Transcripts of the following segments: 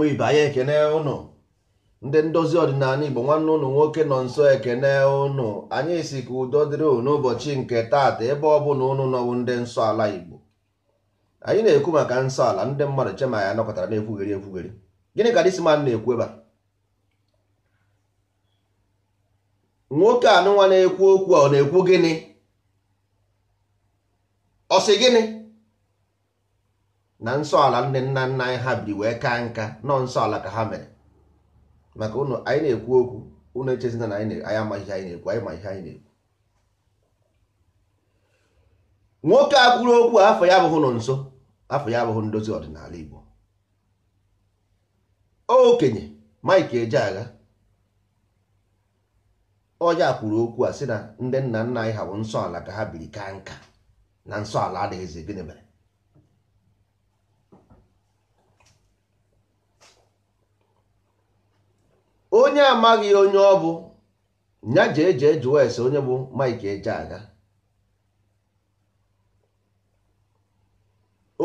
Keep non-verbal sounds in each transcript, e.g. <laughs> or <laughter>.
ụmụ ibe anyị ekene ụnụ ndị ndozi ọdịnala igbo nwanne ụnụ nwoke nọ nso ekene ụnụ anyị si ka udo dịrị n'ụbọchị nke taata ebe ọ bụla ụnụ nọwụ ndị nsọ ala igbo anyị na-ekwu maka nsọ ala ndị mmadụ chema ya nọkọtara na-ekwugheri ekwugheri gịnị ka disman na-ekwu ebe nwoke anụnwa na-ekwu okwu ọ na-ekwu gịnị ọ sị gịnị na nsọ ala nne nna nna anyị ha biri wee kaa nka nọ nsọ ala ka ha mere maka ụnụ anyị na-ekwu okwu ụnụ echezina na anyị amaghị ihe anyị na-ekwu anyị ma ihe anyị na-ekwu nwoke a kwuru okwu afọ ya abụghị nọ nso afọ ya abụghị ndozi ọdịnala Igbo okenye Mike agha ọya kwuru okwu a sị na ndị nna nna anyị ha bụ nsọ ala ka ha biri kaa nka na nsọ ala adịghịzi gịnị mere onye amaghị onye ọ bụ ya jee jee jụọ ese onye bụ Mike aga,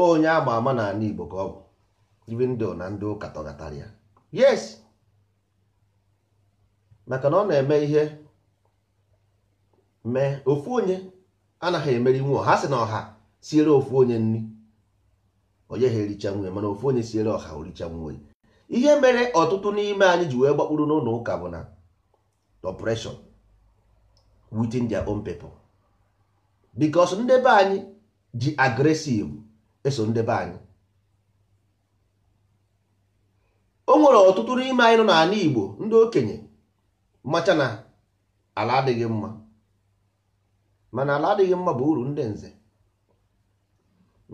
onye ama ama na n'ala Igbo ka ọ bụ ndụ na ndị ụka tọgatara yes maka na ọ na-eme ihe mee ofu onye anaghị emeri nwe ha sị na ọha siere ofu onye nri onye ha ericha nwe mana ofu onye siere ọha oricha ihe mere ọtụtụ n'ime anyị ji wee gbakpuru n'ụlọ ụka bụ na oppression within their because ndebe anyị ji agresive eso ndebe anyị o nwere ọtụtụ n'ime anyị nọ n'ala Igbo ndị okenye macha na ala adịghị mma mana ala adịghị mma bụ uru ndị nze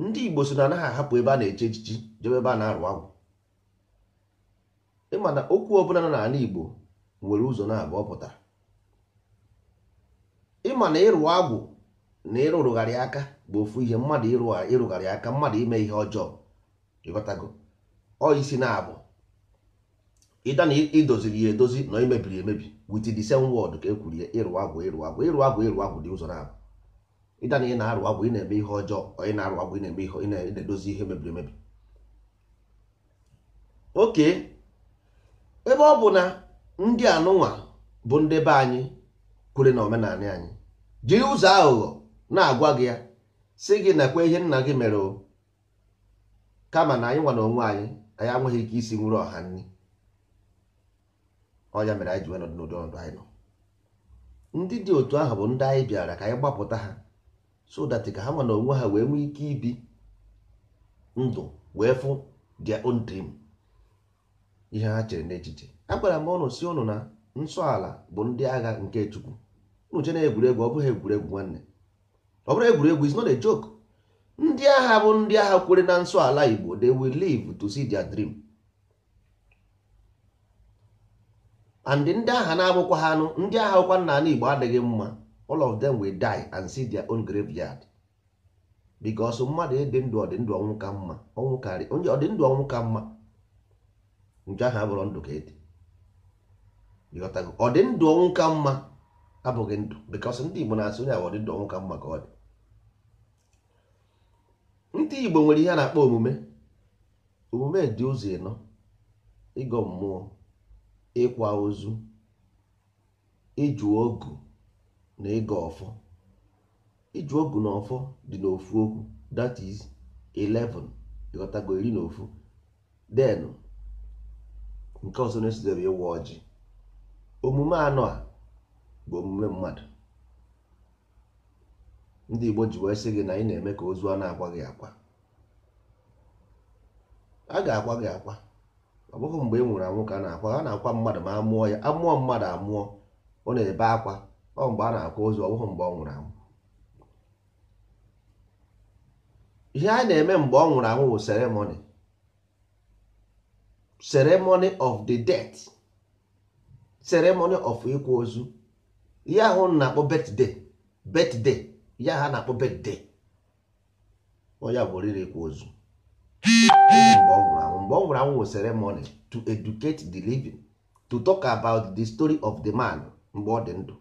ndị Igbo so na anaghị ahapụ ebe a na-eche echichi jebe ebe a na-arụ agwụ ịma na okwu ọ nọ n'ala Igbo nwere ụzọ na abụọ pụtara ịmana na ịrụ agwụ na ịrụrụgharị aka bụ ofu ihe mmadụ ịrụgharị aka mmadụ ime ihe ọjọọ ịghọtago ọ isi na abụ ịda na idoziri ya edozi na imebiri emebi wit the same word ka e ya ịrụ agwụ ịrụ agwụ ịrụ agwụ ịrụ agwụ dị ụzọ na abụ ịda na ị na-arụ agwụ ị na-eme ihe ọjọọ ị na-arụ agwụ ị na-eme ihe ị na-edozi ihe mebiri emebi oke ebe ọ bụ na ndị anụnwa bụ ndị be anyị kwere na omenala anyị jiri ụzọ aghụghọ na-agwa gị ya si gị nakwa ihe nna gị mere o kama na anyị nwa na onwe anyị anyị nweghị ike isi nwere ọha nri ọya mere anyị ji n'ụdị anyị nọ ndị dị otu ahụ bụ ndị anyị bịara ka anyị gbapụta ha so ka ha nwa na onwe ha wee nwee ike ibi ndụ wee fụ their own dream ihe ha chere n'echiche agwara m ụnụ si ụnụ na nsọ ala bụ ndị agha nke chukwu unu che na egwuregwu ọ bụghị egwuregwu nwanne ọ bụrụ egwuregwu is not a joke ndị agha bụ ndị agha kwere na nsọ ala igbo they will live to see their dream and ndị agha na-abụkwa ha anụ ndị agha ụkwa nna ala igbo adịghị mma all of them will die and see their own graveyard because mmadụ ịdị ndụ ọdịndụ ọnwụ ka mma ọnwụ karị onye ọdịndụ ọnwụ ka mma nke ahụ abụrụ ndụ ka edi ịghọtago ọ dị ndụ ọnwụ ka mma abụghị ndụ bikos ndị igbo na-asị onye ọ dị ndụ ọnwụ ka mma ka ọ dị ndị igbo nwere ihe a na-akpọ omume omume dị ụzọ ịnọ ịgọ mmụọ ịkwa ozu ịjụ ogu na ịgọ ọfọ ịjụ ogu na ọfọ dị n'ofu okwu that is 11 ịghọtago iri na ofu denu nke ọzọ na-esodere ịwa ọjị omume anọ a bụ omume mmadụ ndị Igbo ji wee sị gị na ị na-eme ka ozu a na-agwa gị akwa a ga-akwa gị akwa ọ bụghị mgbe ị e nwụrụ anwụ ka a na-akwa a na-akwa mmadụ ma amụọ ya amụọ mmadụ amụọ ọ na-ebe akwa ọ mgbe a na-akwa ozu ọ bụghị mgbe ọ nwụrụ anwụ ihe a na-eme mgbe ọ nwụrụ anwụ bụ seremoni ceremony of the death ceremony of ikwu ozu ya ahụ na-akpọ birthday birthday ya ha na-akpọ birthday onye bụ oriri ịkwa ozu mgbe ọ nwụrụ anwụ mgbe ọ nwụrụ anwụ ceremony to educate the living to talk about the story of the man mgbe ọ dị ndụ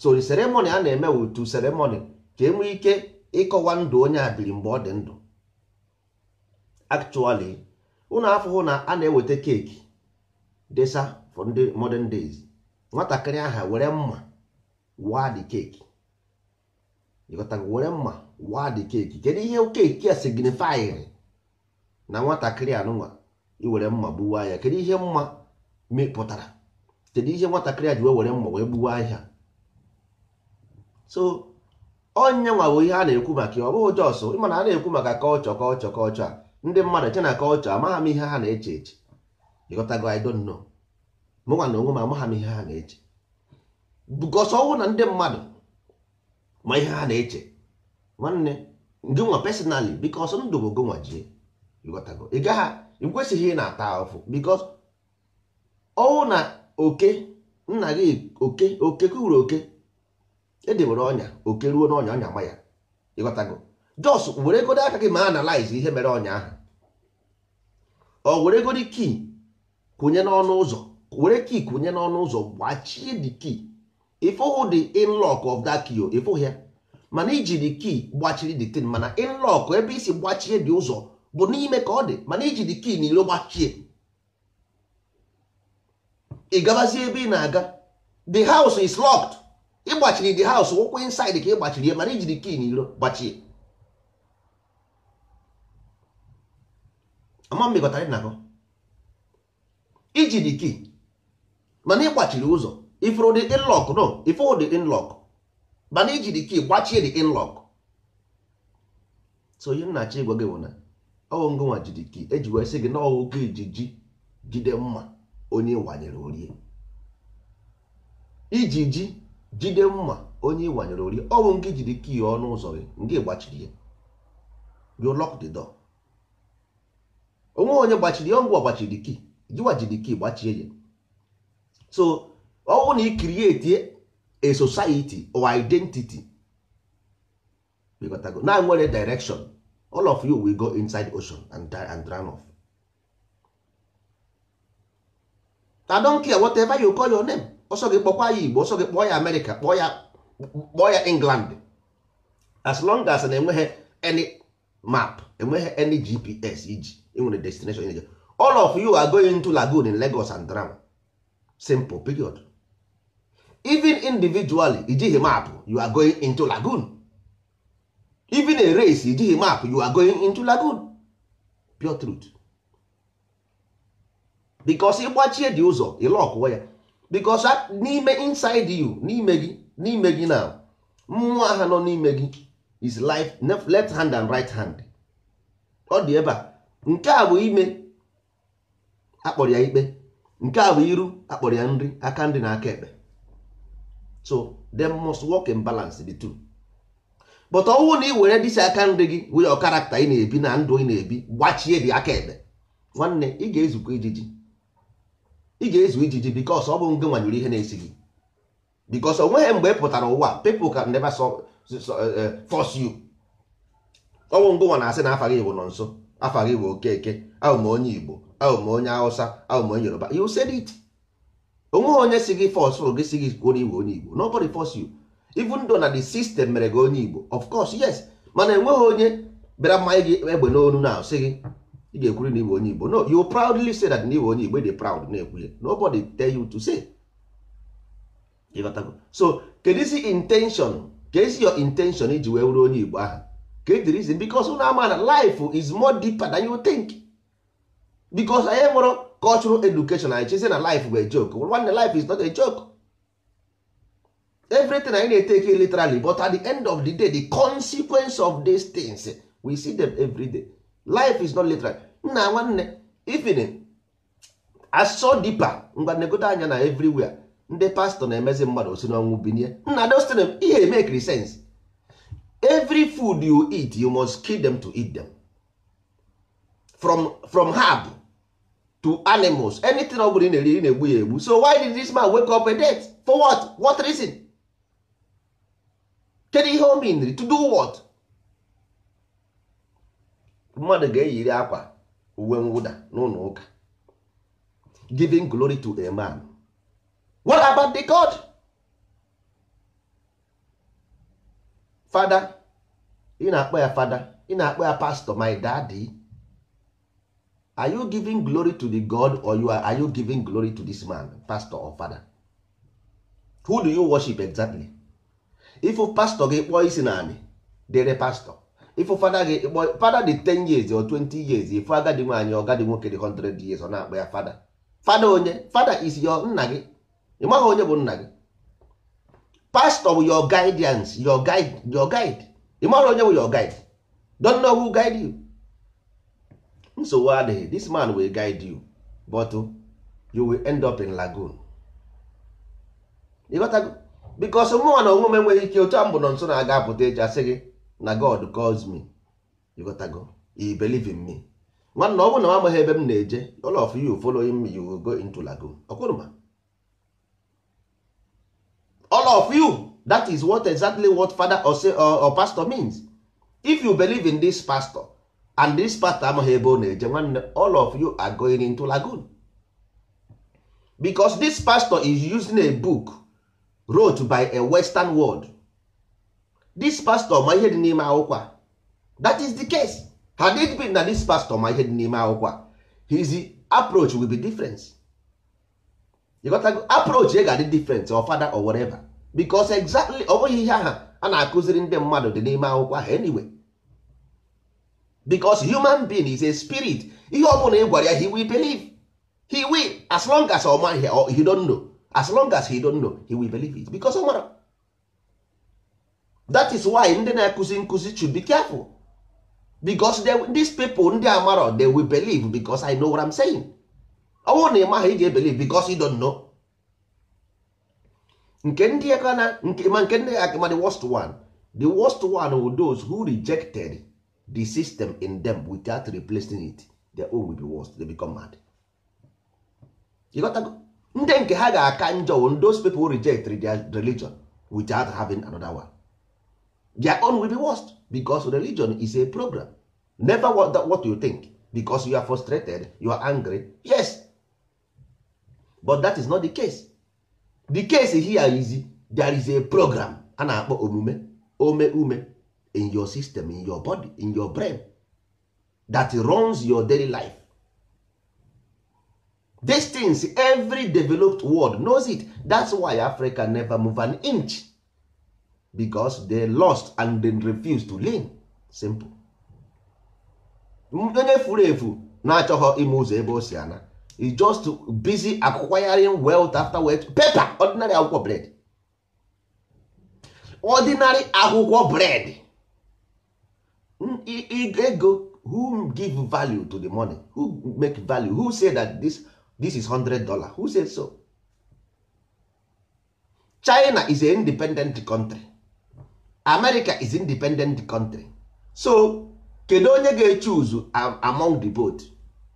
so the ceremony a na-eme wụ to ceremony ka enwee ike ịkọwa ndụ onye a biri mgbe ọ dị ndụ actually unu afụhụ na a na-eweta keeki desa for ndị modern days nwatakịrị aha were mma waa dị keeki were mma waa dị keeki kedu ihe keeki a signifyịrị na nwatakịrị anụnwa iwere mma gbuwa ya kedu ihe mma mepụtara kedu ihe nwatakịrị a ji wee were mma wee gbuwa ahịa so onye nwa bụ ihe a na-ekwu maka ya ọ bụghị jọsụ ịma na a na-ekwu maka kọlchọ kọlchọ kọlchọ a ndị mmadụ eche na kọlchọ amagha m ihe ha na-eche eche ịghọtago I don't know mụnwa na onwe m amagha m ihe ha na-eche bụkọsọ ọnwụ na ndị mmadụ ma ihe ha na-eche nwanne gị nwa personally bikos ndụ bụ gonwa jie ịghọtago ị gaghị ị kwesịghị ị na-ata ahụfụ bikos ọnwụ na oke nna gị oke oke kwuru oke edebere ọnya oke ruo n'ọnya ọnya ma ya ịghọtago jos weregodo aka gị ma analize ihe mere ọnyaahụ ọ weregodo kii kụnye n'ọnụ ụzọ were kii kụnye n'ọnụ ụzọ gbachie dị kii ịfụhụ the inlock of that key ịfụghị ya mana iji dị kii gbachiri dị tin mana inlock ebe isi gbachie dị ụzọ bụ n'ime ka ọ dị mana iji dị kii na gbachie ị gabazie ebe ị na-aga the house is locked ịgbachiri the house wụkwụ inside ka ị gbachiri ya mana iji dị kii na gbachie ama mmekọtara nna gị iji dị key mana ịgbachiri ụzọ ifuru dị inlock nọ ifuru dị inlock mana iji dị key gbachie dị inlock so ihe nna achọ ịgwa gị bụ na ọwụ ngụnwa jiri key eji wee sị gị na ọwụ gị ijiji jide mma onye ịwanyere orie iji ji jide mma onye ịwanyere orie ọwụ ngị jiri key ọnụ ụzọ gị ngị gbachiri ya you lock the door onwe onye gbachiri ngwa gbachiri kii jiwaji jiri gbachie ya so ọ bụrụ na ị krieti a society or identity na e nwere direction all of you will go inside ocean and and off. I don't care whatever you call your name ọsọ gị kpọkwa ya Igbo ọsọ gị kpọọ ya America kpọọ ya England as long as na enweghị any map enweghị any GPS iji enwere destination ị na all of you are going to lagoon in Lagos and drown simple period even individually ijighị map you are going into lagoon even a race ijighị map you are going into lagoon pure truth because ịgbachie dị ụzọ ịlọkụwa ya because n'ime inside you n'ime gị n'ime gị na mmụọ aha nọ n'ime gị is life left hand and right hand ọ dị ebe a nke a bụ ime akpọrọ ya ikpe nke a bụ iru akpọrọ ya nri aka nri na aka ekpe so them must work in balance the two but ọnwụ na ị were dịsi aka nri gị wụnye karakta ị na-ebi na ndụ ị na-ebi gbachie dị aka ekpe nwanne ị ga-ezukwa ijiji ị ga-ezu ijiji bikos ọ bụ nge nwanyere ihe na-esi gị bikos o nweghị mgbe ị pụtara ụwa people can never uh, fọs yu ọ bụ ngonwa na-asị na afa gị bụ nọ nso afa gị bụ okeke ahụ m onye igbo ahụ onye hausa ahụ m onye yoruba you said it onweghị onye si gị fọsụrụ gị si gị kwuo iwe onye igbo nobody force you even though na the system mere gị onye igbo of course yes mana enweghị onye bịara mmanya gị egbe n'onu na sị gị ị ga-ekwuri na iwe onye igbo no you proudly say that na iwe onye igbo e dị proud na-ekwunye nobody tell you to say ịghọtago so kedu isi intention ka esi your intention iji wee wuru onye igbo ahụ get the reason because unu ama na life is more deeper than you think because anyị mụrụ cultural education anyị chezi na life bụ a joke nwanne life is not a joke everything anyị na-eteke literally but at the end of the day the consequence of these things we see them every day life is not literal nna nwanne even asọ deeper ngwa anya na everywhere ndị pastọ na-emezi mmadụ si n'ọnwụ binie nna dostin ihe make sense every food you eat you must kill them to eat them from from herb to animals anything ọ bụla ị na-eri na-egbu ya egbu so why did this man wake up a death for what what reason kedu ihe o mean to do what mmadụ ga-eyiri akwa uwe mwụda n'ụlọ ụka giving glory to a man what about the god fada ị na-akpọ ya fada ị na-akpọ ya pastor my daddy are you giving glory to the god or you are, are you giving glory to this man pastor or father who do you worship exactly ifu pastor gị kpọọ isi naanị dere pastọ. ifu fada gị kpọọ fada dị 10 years or 20 years ifu agadi nwaanyị ọgadi nwoke dị 100 years ọ na-akpọ ya fada fada onye fada is your nna gị ị maghị onye bụ nna gị pastor bụ your guidance your guide your guide ị mara onye bụ your guide don't know who guide you nsogbu adịghị this man will guide you but you will end up in lagoon ịghọtago because mụnwa na onwe m enweghị ike otu a mbụ nọ nso na-aga apụta echi asị gị na god calls me ịghọtago you believe in me nwanna ọ bụ na m amaghị ebe m na-eje all of you following me you will go into lagoon ọkwụrụ ma all of you that is what exactly what father or, say, or, or pastor means if you believe in this pastor and this pastor amaghị ebe ọ na-eje nwanne all of you are going into lagoon because this pastor is using a book wrote by a western world this pastor ma ihe dị n'ime akwụkwọ that is the case had it been na this pastor ma ihe dị n'ime akwụkwọ his approach will be different ịghọtago approach ya ga-adị different or fada or whatever because exactly ọ bụghị ihe aha a na-akụziri ndị mmadụ dị n'ime akwụkwọ ahụ anyway because human being is a spirit ihe ọ bụla ị gwara ya he will believe he will as long as ọ maghị or he don't know as long as he don't know he will believe it because ọ mara that is why ndị na-akụzi nkụzi should be careful because they, these people ndị amaro they will believe because I know what I'm saying. ọ bụrụ na ị maghị ị ga because you don't know nke ndị aka na nke ma nke ndị aka the worst one the worst one were those who rejected the system in them without replacing it their own will be worst they become mad ịghọtago ndị nke ha ga-aka njọ those people reject their religion without having another one their own will be worst because religion is a program never what, what you think because you are frustrated you are angry yes but that is not the case the case here is there is a program a na-akpọ omume ome ume in your system in your body in your brain that runs your daily life these things every developed world knows it that's why africa never move an inch because they lost and then refused to lean simple onye furu efu na-achọghọ ime ụzọ ebe o si ana is just busy acquiring wealth after wealth paper ordinary akwụkwọ bread ordinary akwụkwọ bread hmm, ego who give value to the money who make value who say that this, this is hundred dollar who say so China is an independent country America is independent country so kedu onye ga-echuzu among the both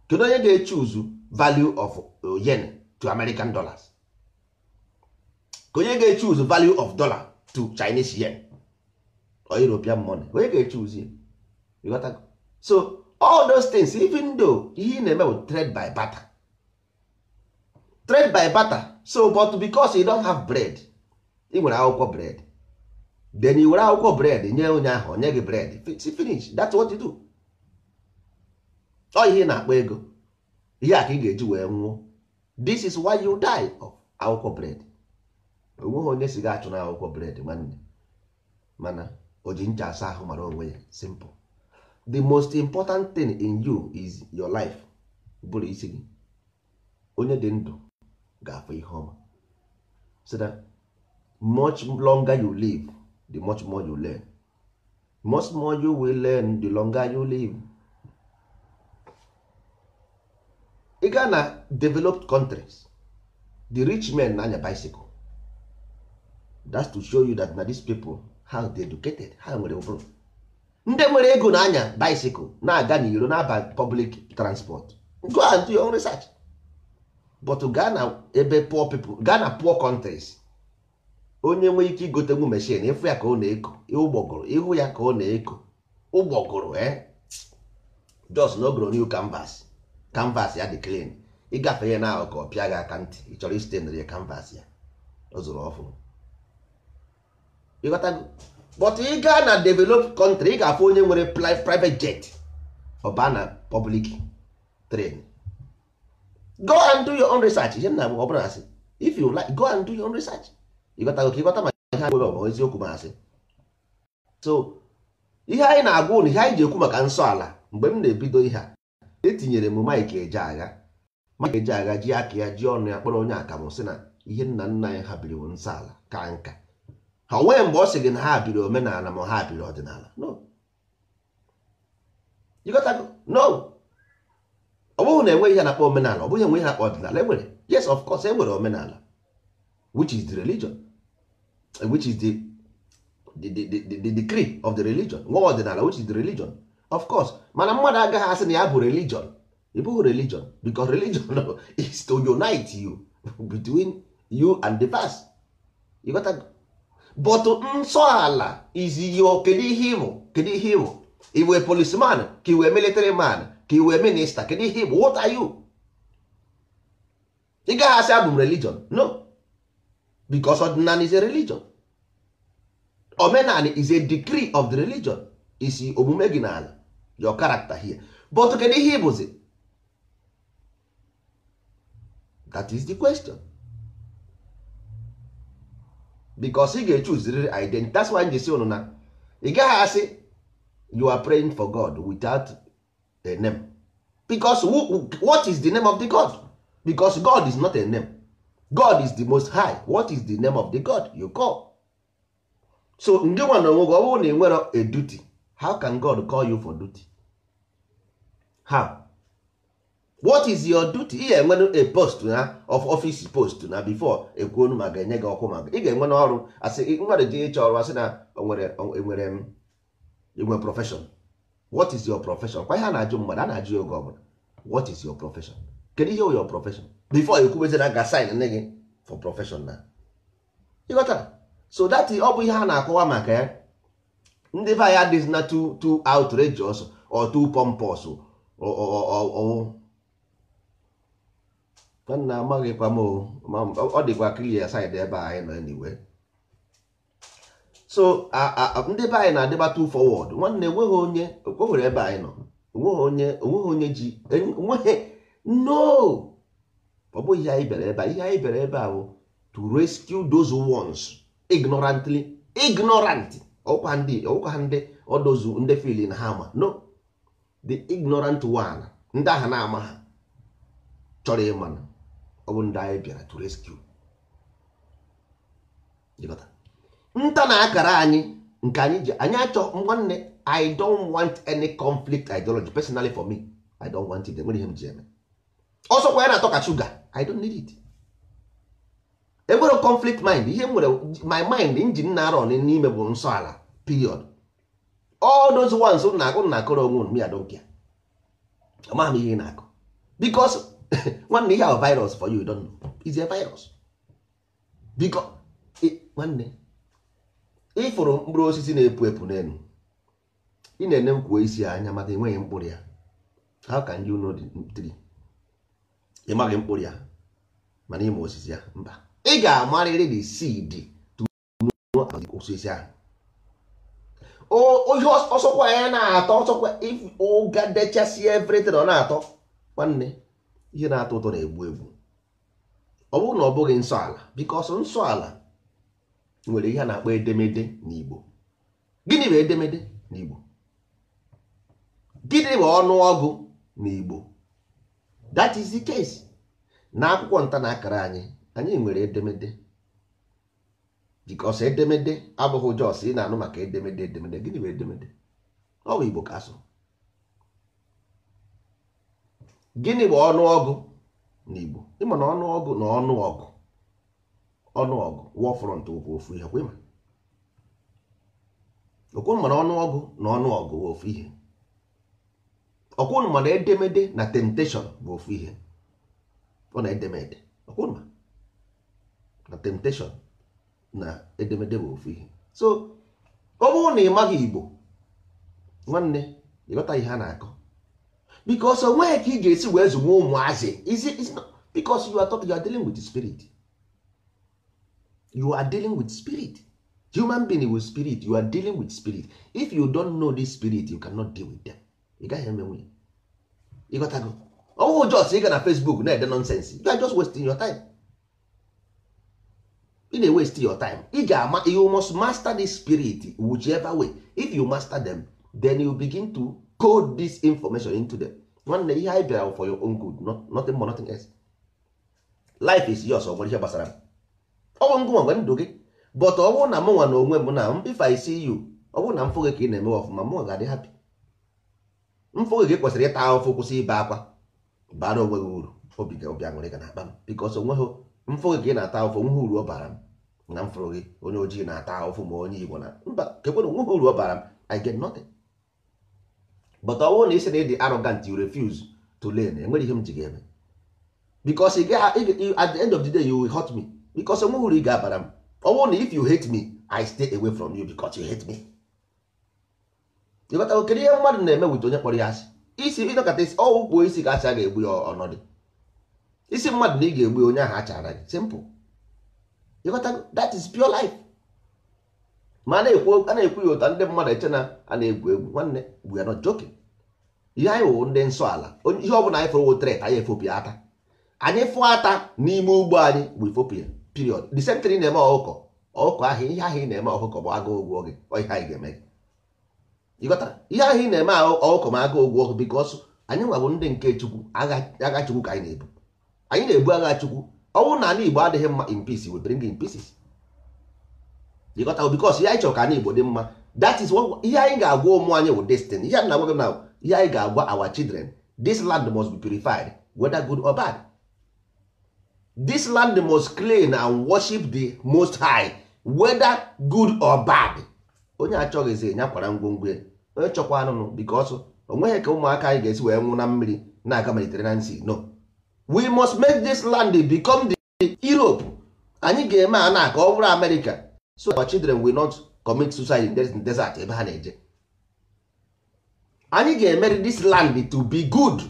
kedu onye ga uzu value of uh, yen to american dollars ka onye ga value of dollar to chinese yen or european money onye ga-echuz ya so all those things even though ihe na-eme bụ trade by barter trade by barter so but because you don't have bread ị nwere akwụkwọ bread then i were akwụkwọ bread nye onye ahụ onye gị bread finish that's what you do ọ ihe na-akpọ ego ihe a ka ị ga-eji wee nwụọ this is why you die of akwụkwọ bred onweghị onye si ga-achụ na akwụkwọ bred nwanne mana o ji ncha asa ahụ mara onwe ya simple the most important thing in you is your life bụrụ isi gị onye dị ndụ ga-afụ ihe ọma so that much longer you live the much more you learn much more you will learn the longer you live ị gaa na developed countries the rich men na-anya bicycle that's to show you that na these people how they educated ha nwere ụbụrụ ndị nwere ego na-anya bicycle na-aga n'iro na-aba public transport go and do your own research but gaa na ebe poor people gaa na poor countries onye nwee ike igotenwu machine ịfụ ya ka ọ na-eko ụgbọgụrụ ịhụ ya ka ọ na-eko ụgbọgụrụ eh? just n'ogoro new canvas canvas ya dị clean ịgafe ya na-ahụ ka ọ pịa gị aka ntị ị chọrọ isite nri canvas ya ọ zụrụ ọfụ ịghọtago but ị gaa na developed country ị ga-afụ onye nwere private jet ọba na public train go and do your own research ihe nna ọ bụla asị if you like go and do your own research ịghọtago ka ịghọta maka ihe nwere nwere eziokwu ma asị so ihe anyị na-agwa ụnụ ihe anyị ji ekwu maka nsọ ala mgbe m na-ebido ihe a etinyere m Mike Ejeagha Mike agha ji aka ya ji ọnụ ya kpọrọ onye akamụ si na ihe nna nna ya ha biri ala ka nka ha mgbe ọ sị gị na ha biri omenala ma ha biri ọdịnala no ọ bụghị na enweghị ihe na-akpọ omenala ọ bụghị enwe ihe na-akpọ ọdịnala enwere yes of course enwere omenala which is the religion which is the the the the, the of the religion nwa ọdịnala which is the religion of course mana mmadụ agaghị asị na ya bụ religion ị bụghị religion because religion <laughs> is to unite you <laughs> between you and the past you got that? but nsọ ala is kedu ihe ịbụ kedu ihe ịbụ iwe policeman ka iwe military man ka iwe minista kedu ihe ịbụ what are you ị gaghị asị abụ m religion no because ọdịnala is a religion omenala is a decree of the religion isi omume gị n'ala your character here but kedu ihe ịbụzi that is the question because ị ga-echuziriri identity that's why njesi unu na ị gaghị asị you are praying for God without a name because who, what is the name of the God because God is not a name God is the most high what is the name of the God you call so ndị nwa na onwe gị ọ bụrụ na ị nwere a duty how can god call you for duty how what is your duty ị ga-enwe a post na of office post na before ekwuonu ma ga-enye gị ọkụ maka ị ga-enwe n'ọrụ asị mmadụ ji ịchọ ọrụ asị na enwere inwe e profession what is your profession kwa ihe a na-ajụ mmadụ a na-ajụ ya oge ọbụla what is your profession kedu ihe your profession before ekwubezina ga sign nne gị for profession na ịghọtara so that ọ bụ ihe a na-akọwa maka ya ndị be anyị adịghị na too too outrageous or too pompous nna amaghịkwa m ọ dịkwa clear side ebe anyị nọ niwe so ndị be anyị na-adịba too forward nwanne enweghị onye okwewere ebe anyị nọ onweghị onye onweghị onye ji enweghị no ọ bụghị ihe anyị bịara ebe a ihe anyị bịara ebe a bụ to rescue those ones ignorantly ignorant ọkwa ndị ọkwa ndị ọdozu ndị filin ha ma no the ignorant one ndị aha na-ama ha chọrọ na ọ bụ ndị anyị bịara to rescue nta na akara anyị nke anyị ji anyị achọ nwanne i don't want any conflict ideology personally for me i don't want it enwere ihe m ji ọsọkwa ya na-atọ ka shuga i don't need it enwere conflict mind ihe nwere my mind injin na arọ n'ime bụ nsọ ala period all those ones na akụ na akụrụ onwe m ya dokia amaghị m ihe ị na-akụ because <laughs> nwanne ihe ahụ virus for you don't know is a virus because e, nwanne ịfụrụ mkpụrụ osisi na-epu epu n'elu ị na-ene nkwuo isi ya anya maka enweghị mkpụrụ ya how can you know the tree ị maghị mkpụrụ ya mana ịma osisi ya mba ị ga-amarịrị the seed to know osisi ahụ ihe ọsọkwa ya na-atọ ọsọkwa ụga dechasị ọ na-atọ nwanne ihe na-atọ ụtọ na-egbu egbu ọ bụrụ na ọ bụghị nsọ ala because nsọ ala nwere ihe a na-akpọ edemede n'Igbo gịnị bụ edemede n'Igbo gịnị bụ ọnụ ọgụ n'Igbo that is the case na akwụkwọ nta na akara anyị anyị nwere edemede bikos edemede abụghị jos ị na-anụ maka edemede edemede gịnị bụ edemede ọ bụ igbo ka gịnị bụ ọnụọgụ na igbo ịma na ọnụọgụ na ọnụọgụ ọnụọgụ wọfrọnt wụkwa ofu ihe kwa ịma okwunu mana ọnụọgụ na ọnụọgụ bụ ofu ihe okwunu mana edemede na temptation bụ ofu ihe ọ na edemede okwunu ma na temptation na edemede bụ ofu ihe so ọ bụrụ na ị maghị igbo nwanne ịghọta ihe a na-akọ because onweghị ka ị ga-esi wee zụwa ụmụazị because you are talking, you are dealing with spirit you are dealing with spirit human being with spirit you are dealing with spirit if you don't know this spirit you cannot deal with them ị gaghị emenwe ịghọtago ọwụ jos ị ga na facebook na-ede nonsense you are just wasting your time. ị na-ewest your time ị ga-ama you must master the spirit whichever way if you master them then you begin to code this information into them nwanne ihe anyị bịara for your own good not, nothing more nothing else life is yours ọ ihe gbasara m ọnwụ ngụ nwere ndụ gị but ọ bụrụ na m nwa na onwe m na if I see you ọ bụrụ na mfụ gị ka ị na-eme ọfụma m ga-adị happy mfụ gị kwesịrị ịta ahụfụ kwụsị ibe akwa baa na onwe gị uru obi ga-abịa nwere ga na akpa m because onweghị mfụ gị na-ata ụfụ nwe uru ọ bara m na mfụrụ gị onye ojii na-ata ụfụ ma onye igbo na mba kekwena nwe uru ọ bara m i get nothing but ọ wụrụ na isi na ịdị arrogant you refuse to learn enwere ihe m ji gị eme because at the end of the day you will hurt me because onwe uru ị ga-abara m ọ bụrụ na if you hate me i stay away from you because you hate me ịghọtago kedu ihe mmadụ na-eme wit onye kpọrọ ya asị isi ịnọkọta isi ọwụ kpuo isi ga asị a ga-egbu ya ọnọdụ isi mmadụ na ị ga-egbu onye ahụ achara gị simple that is pure life ma a na-ekwu ya ụta ndị mmadụ eche na a na-egwu egwu nwanne we ya nọ joking ihe anyị wụ ndị nsọ ala ihe ọ bụla anyị fụrụ wotret anyị efopịa ata anyị fụọ ata n'ime ugbo anyị bụ ifopịa period the same thing na-eme ọkụkọ ọkụkọ ahụ ihe ahụ ị na-eme ọkụkọ bụ agụụ ụgwọ gị ihe anyị ga-eme gị ịghọta ihe ahụ ị na-eme ọkụkọ ma agụụ ụgwọ gị bikos anyị nwabụ ndị nke chukwu agha chukwu ka anyị na-ebu anyị na-ebu agha chukwu ọnwụ na ala igbo adịghị mma in peace we bring in pieces because ihe anyị chọrọ ka ala igbo dị mma that is ihe anyị ga-agwa ụmụ anyị wụ destiny ihe na agwa na ihe anyị ga-agwa our children this land must be purified whether good or bad this land must clean and worship the most high whether good or bad onye achọghịzi nyakwara ngwongwo ya onye chọkwa anụnụ because o nweghị ka ụmụaka anyị ga-esi wee nwụ na mmiri na-aga na Sea no we must make this land become the Europe anyị ga-eme a na ka ọ bụrụ America so our children will not commit suicide in desert ebe ha na-eje anyị ga-emeri this land to be good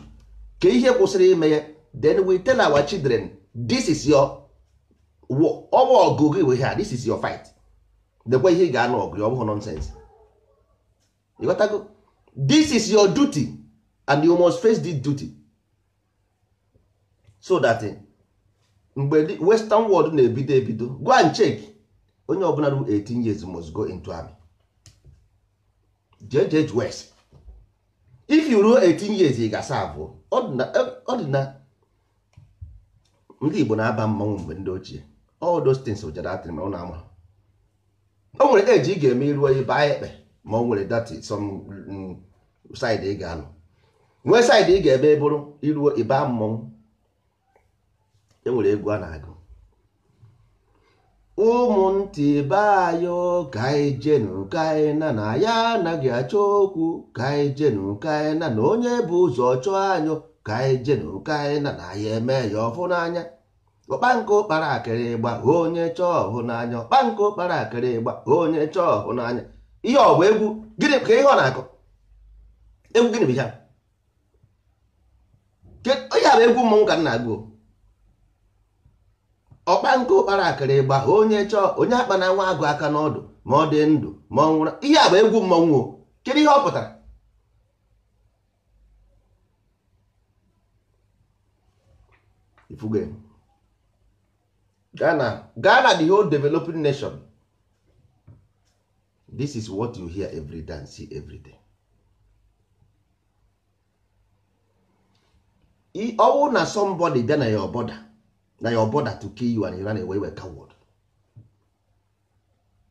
ka ihe kwụsịrị ime ya then we tell our children this is your ọwa ọgụ gị we ha this is your fight dekwa ihe ị ga-anụ ọgụ ọ bụghị nonsense ịghọtago this is your duty and you must face this duty so that eh, mgbe western world na-ebido ebido go and check onye ọbụla ru 18 years must go into army jj west if you ruo 18 years ị ga-asa abụọ ọ dị na ndị igbo na-aba mmanwụ mgbe ndị ochie all those things ụjara atịrị ma ọ na-ama o nwere eji ị ga-eme iruo ịba ekpe ma o nwere dati some mm, side ị ga-alụ nwee side ị ga eme bụrụ iruo ịba mmanwụ enwere egwu a na-agụ ụmụntị be ayọ ka anyị jenu ka na ya anaghị achọ okwu ka anyị jenu ka na onye bụ ụzọ chọọ anyụ ka anyị jenu ka na ya eme ya ọfụ n'anya ọkpankụ kpara akịrị ịgba onye chọọ ọhụ n'anya ọkpankụ kpara akịrị ịgba onye chọọ ọhụ n'anya ihe ọ bụ egwu gịnị ka ihe ọ na-akụ egwu gịnị bụ ya onye bụ egwu mmọnwụ ka m na-agụ ọkpa nke ụkpara akara ịgba ha onye chọọ onye akpa na nwa agụ aka n'ọdụ ma ọ dị ndụ ma ọ nwụrụ ihe a bụ egwu mmọnwụ kedu ihe ọ pụtara Ghana Ghana the whole developing nation this is what you hear every day and see every day ọwụ na somebody dị na ya ọbọda na your brother to kill you and you run away with coward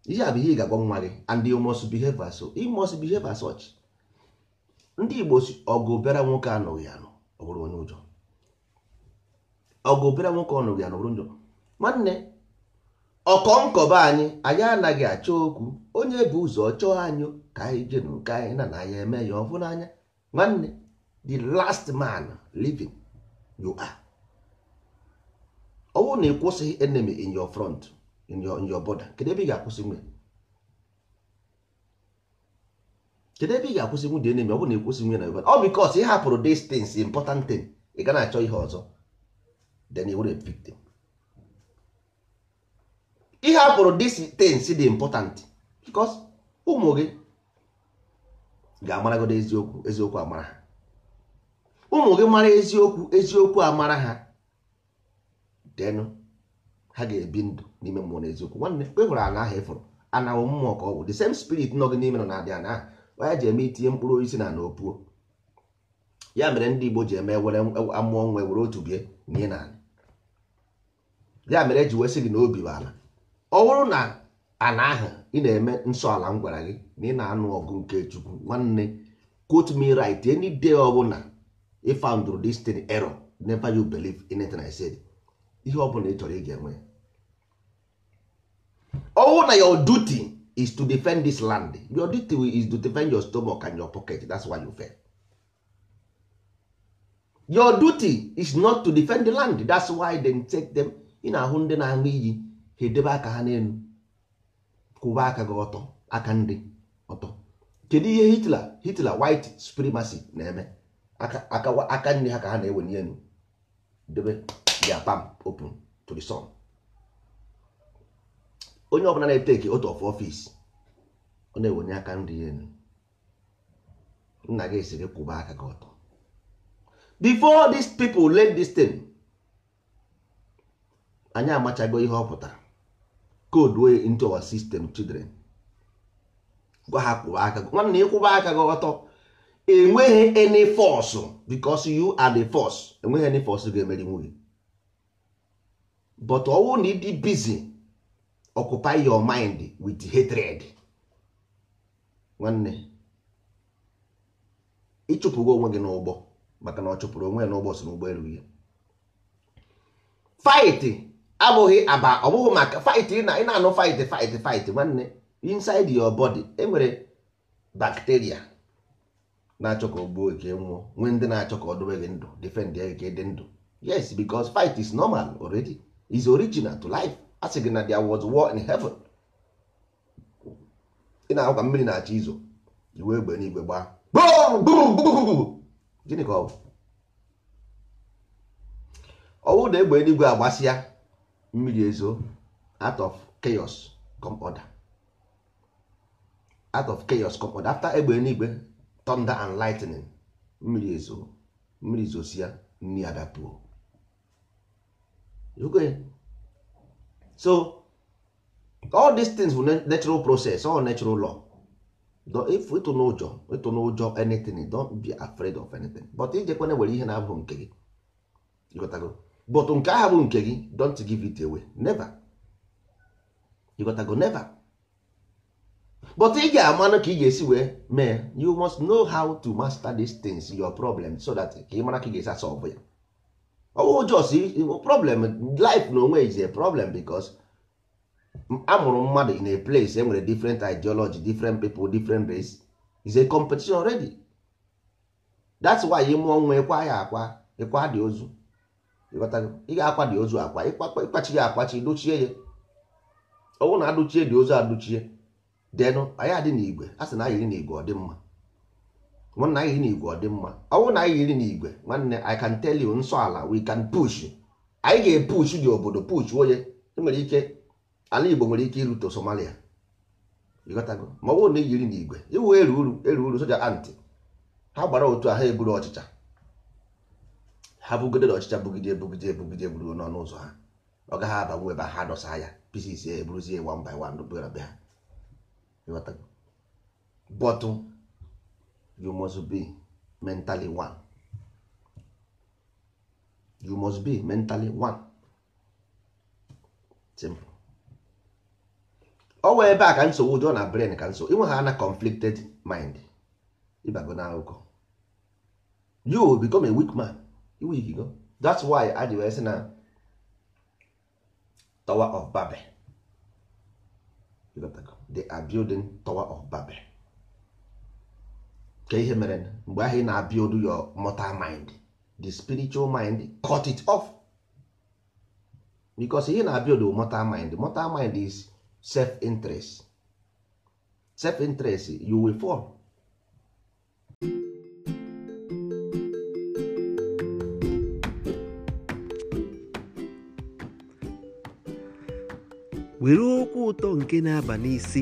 ihe a bụ ihe ị ga-agwa nwa gị and you must behave as you must behave as such ndị Igbo ọgụ bịara nwoke anụghị anụ ọ onye ụjọ ọgụ bịara nwoke anụghị anụ ọ njọ nwanne ọkọ nkọba anyị anyị anaghị achọ okwu onye bụ ụzọ chọọ anyị ka anyị jee nke anyị na na anyị eme ya ọ bụ n'anya nwanne the last man living you are ọ bụrụ na ị kwụsịghị enemy in your front in your, in your border kedu ebe ị ga-akwụsị nwe kedu ebe ị ga-akwụsị nwunye enemy ọ bụrụ na ị kwụsị nwe na your border ọ because ị hapụrụ distance important thing ị ga na-achọ ihe ọzọ then you were a victim ị hapụrụ distance dị important because ụmụ gị ga-amaragodo eziokwu eziokwu amara ha ụmụ gị mara eziokwu eziokwu amara ha denụ ha ga-ebi ndụ n'ime mmụọ na eziokwu nwanne mgbe hụrụ e ana ahụ ịfụrụ anawụ mmụọ ka ọ bụ the same spirit nọ gị n'ime nọ na-adị ana ahụ onye ji eme itinye mkpụrụ osisi na na opuo ya mere ndị Igbo ji eme were e, amụọ nwe were otu bie nye na ala ya mere eji wesị gị na obi bụ ala ọ bụrụ na ana ahụ ị na-eme nsọ ala m gwara gị na ị na-anụ ọgụ nke Chukwu nwanne quote me right any day ọbụla ị found this thing error never you believe in anything I said ihe ọ bụla ị chọrọ ị ga-enwe ọwụ na your duty is to defend this land your duty is to defend your stomach and your pocket that's why you fail your duty is not to defend the land that's why they take them ị na-ahụ ndị na-aṅụ iyi ha edebe aka ha n'elu kwụba aka gị ọtọ aka ndị ọtọ kedu ihe Hitler Hitler white supremacy na-eme aka ndị ha ka ha na-ewe n'elu debe their palm open to the sun onye ọbụla na-eteki otu of ofis ọ na-ewonye aka nri enu nna gị si gị kwụba aka gị ọtọ before these people learn this thing anyị amachago ihe ọ pụtara code into our system children gwa ha kwụba aka gị nwanne ịkwụba aka gị ọtọ enweghị any force because you are the force enweghị any force ga-emeri nwunye but ọwụ na ịdị busy occupy your mind with hatred nwanne ịchụpụgo onwe gị n'ụgbọ maka na ọ chụpụrụ onwe ya n'ụgbọ si n'ụgbọelu ya fight abụghị aba ọ bụghị maka fight ị na-anụ fight fight fight nwanne inside your body enwere bacteria na-achọ ka o gbuo gị e nwụọ nwee ndị na-achọ ka ọ dobe gị ndụ defend ya ka e dị ndụ yes because fight is normal already. is original to life a sị gị na The was war in heaven ị na-ahụ ka mmiri na-achọ izo iwe egbe n'igwe gbaa gịnị ka ọ bụ ọwụ na egbe eluigwe agbasịa mmiri ezo out of chaos come order out of chaos come order after egbe eluigwe thunder and lightning mmiri ezo mmiri zosia nni adapụọ so all these things bụ natural process all natural law if ịtụ ụjọ ịtụ n'ụjọ anything don't be afraid of anything but ijekwana nwere ihe na-abụ nke gị but nke ahụ bụ nke gị don't give it away never ịgotago never but ị ga-amanụ ka ị ga-esi wee mee you must know how to master these things your problem so that ka ị mara ka ị ga-esi solve ya ọwụ oh, jos problem life na onwe is a problem because amụrụ mmadụ in a place enwere different ideology different people different race is a competition already that's why ị nwa ịkwa ya akwa ịkwa dị ozu ị ga-akwa dị ozu akwa ịkpachi ya akpachi dochie ya ọwụ na adụchie dị ozu adụchie denụ anyị adị n'igwe a sị na anyị dị n'igwe ọ dị mma ọ na anyị yiri n'igwe ọ dị mma ọ na anyị yiri n'igwe nwanne I can tell you nsọ ala we can push anyị ga-epush dị obodo push onye nwere ike ala Igbo nwere ike irute Somalia ma ọ na yiri n'igwe iwu eru uru eru uru soja anti ha gbara otu a ha eburu ọchịcha ha bugidere ọchịcha bugide ebugide ebugide buru n'ọnụ ụzọ ha ọ gaghị abanwu ebe ha dọsa ya pieces eburuzie one by one ha bọtụ you must be mentally one you must be mentally one simple ọ wee ebe a ka nsogbu dị ọ na brain ka nso inwe ha na conflicted mind ịbago na akụkọ you become a weak man iwigigo that's why adị wee sị na tower of babel they are building tower of babel ka ihe mere mgbe ahụ ị na-abịa odu your mortal mind the spiritual mind cut it off because ihe na-abịa odu mortal mind mortal mind is self interest self interest you will fall were okwu ụtọ nke na-aba n'isi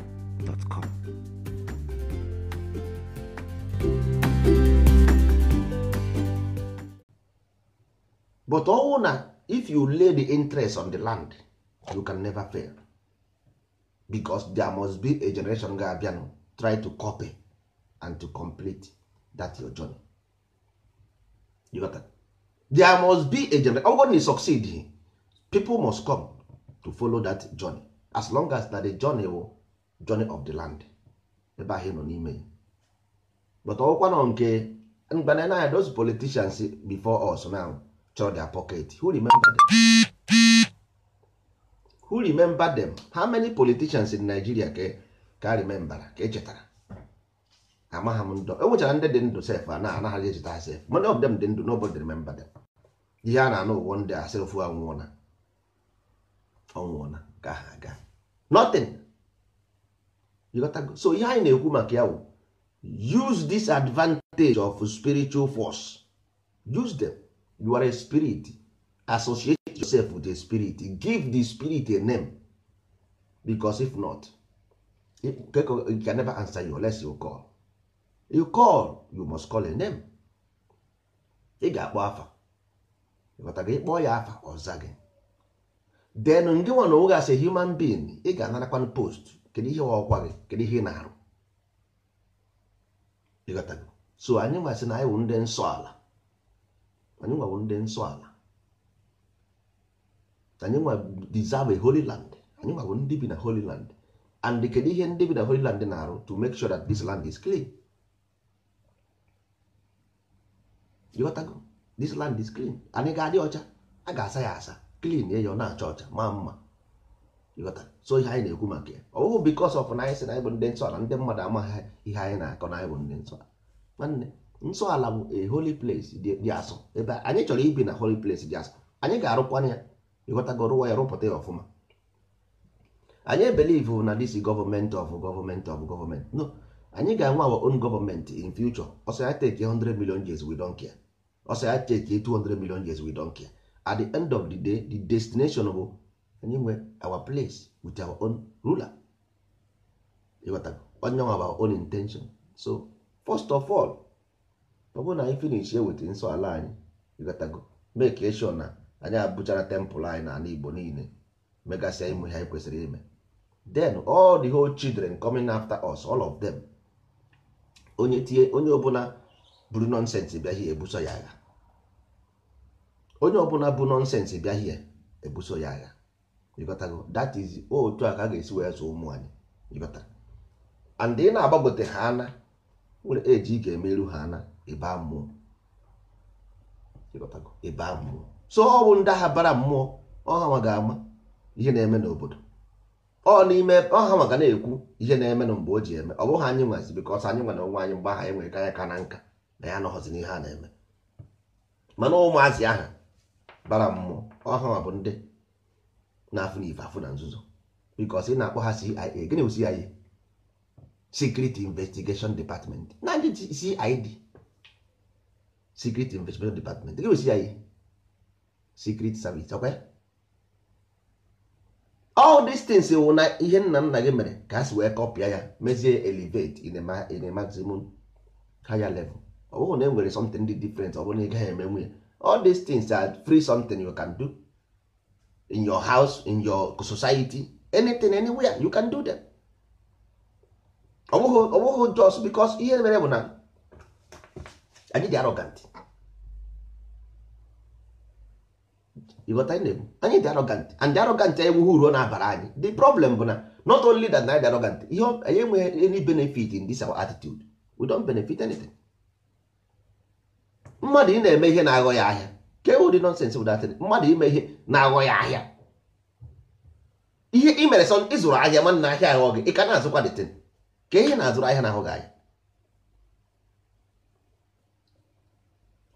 but ọnwụ oh, na if you lay the interest on the land you can never fail because there must be a generation ga-abịanụ try to copy and to complete that your journey you got that? there must be a generation ọgwụ na succeed people must come to follow that journey as long as na the journey will oh, journey of the land ebe ahụ nọ n'ime but ọkwa nọ nke mgbana na those politicians before us now chọrọ their pocket who remember them who remember them how many politicians in Nigeria ka ka remember ka echetara amaghị m ndụ enwechara ndị dị ndụ sef a na-anaghị echeta sef many of them dị ndụ nobody remember them ihe a na-anụ ụwa ndị a sef anwụọna ọnwụọna ka ha aga nothing so ihe anyị na-ekwu maka ya use this advantage of spiritual force use them you are a spirit associate yourself with a spirit give the spirit a name because if not you can never answer you unless you call you call you must call a name ị ga-akpọ afa ịghọta gị kpọọ ya afa ọ zage then ndị nwa na as a human being ị ga-anarakwan post kedu ihe ọkwa gị kedu ihe ị na-arụ ịghọtago so anyị masị na anyị wụ ndị nsọ ala anyị nwa ndị nsọ ala anyị nwa deserve holy land anyị nwa ndị bi na holy land and kedu ihe ndị bi na holy land na-arụ to make sure that this land is clean ịghọtago this land is clean anyị ga-adị ọcha a ga-asa ya asa clean ya ọ na-acha ọcha maa mma so ihe anyị na-ekwu maka ya ọ bụghị because of na anyị sị na anyị bụ ndị nsọ ala ndị mmadụ amaghị ihe anyị na-akọ na anyị bụ ndị nsọ nwanne nsọ ala bụ a holy place dị asụ ebe anyị chọrọ ibi na holy place dị asụ anyị ga-arụkwana ya ịghọtago rụwa ya rụpụta ya ọfụma anyị believe na this government of government of government no anyị ga-enwe our own government in future ọsọ ya take 100 million years we don't care ọsọ ya take 200 million years we don't care at the end of the day the destination bụ anyị nwe our place with our own ruler ịghọtago onye nwa our own intention so first of all ọ bụrụ na anyị finish eweta nsọ ala anyị ịghọtago make sure na anyị abụchara temple anyị na ala Igbo niile megasịa ịmụ ihe anyị kwesịrị ime then all the whole children coming after us all of them onye tie onye ọbụla buru nonsense bịa hie ebuso ya agha onye ọbụla bụ nonsense bịa hie ebuso ya agha ịghọtago dat is otu a ka a ga-esi wee zụ ụmụ anyị ịghọtara and ị na-agbagote ha ana nwere eji ị ga-emeru ha ana ịba mmụọ ịghọtago ịba mmụọ so ọ bụ ndị agha bara mmụọ ọha ga-ama ihe na-eme n'obodo ọ n'ime ọha maka na-ekwu ihe na-eme na mgbe o ji eme ọ bụghị anyị nwazi bikọs anyị nwere onwe anyị mgbe aha enwere ka ka na nka na ya anọghọzi n'ihe a na-eme mana ụmụazị aha bara mmụọ ọha bụ ndị na afụ na ife afụ na nzuzo bikos ị na-akpọ ha CIA gịnị bụ CIA Secret Investigation Department na ndị CID Secret Investigation Department gịnị bụ CIA Secret Service ọkwa all these things wụ eh, na ihe nna nna gị mere ka a si wee kọpịa ya mezie elevate in a maximum higher level ọ bụghị na e nwere something dị different ọ bụrụ na ị gaghị emenwu ya all these things are free something you can do in your house in your society anything anywhere you can do them ọ bụghị just because ihe mere bụ na anyị dị arrogant ịghọta anyị na-ebu anyị dị arrogant and the arrogant anyị ewughị na-abara anyị the problem bụ na not only that na anyị dị arrogant ihe anyị enweghị any benefit in this our attitude we don't benefit anything mmadụ ị na-eme ihe na-aghọ ya ahịa ke ụdị nonsense bụ that mmadụ ime ihe na-aghọ ahịa ihe ị mere sọ ịzụrụ ahịa ahịa aghọ gị ị ka na-azụkwa dịtịn ka ihe na-azụrụ ahịa na-ahụ gị ahịa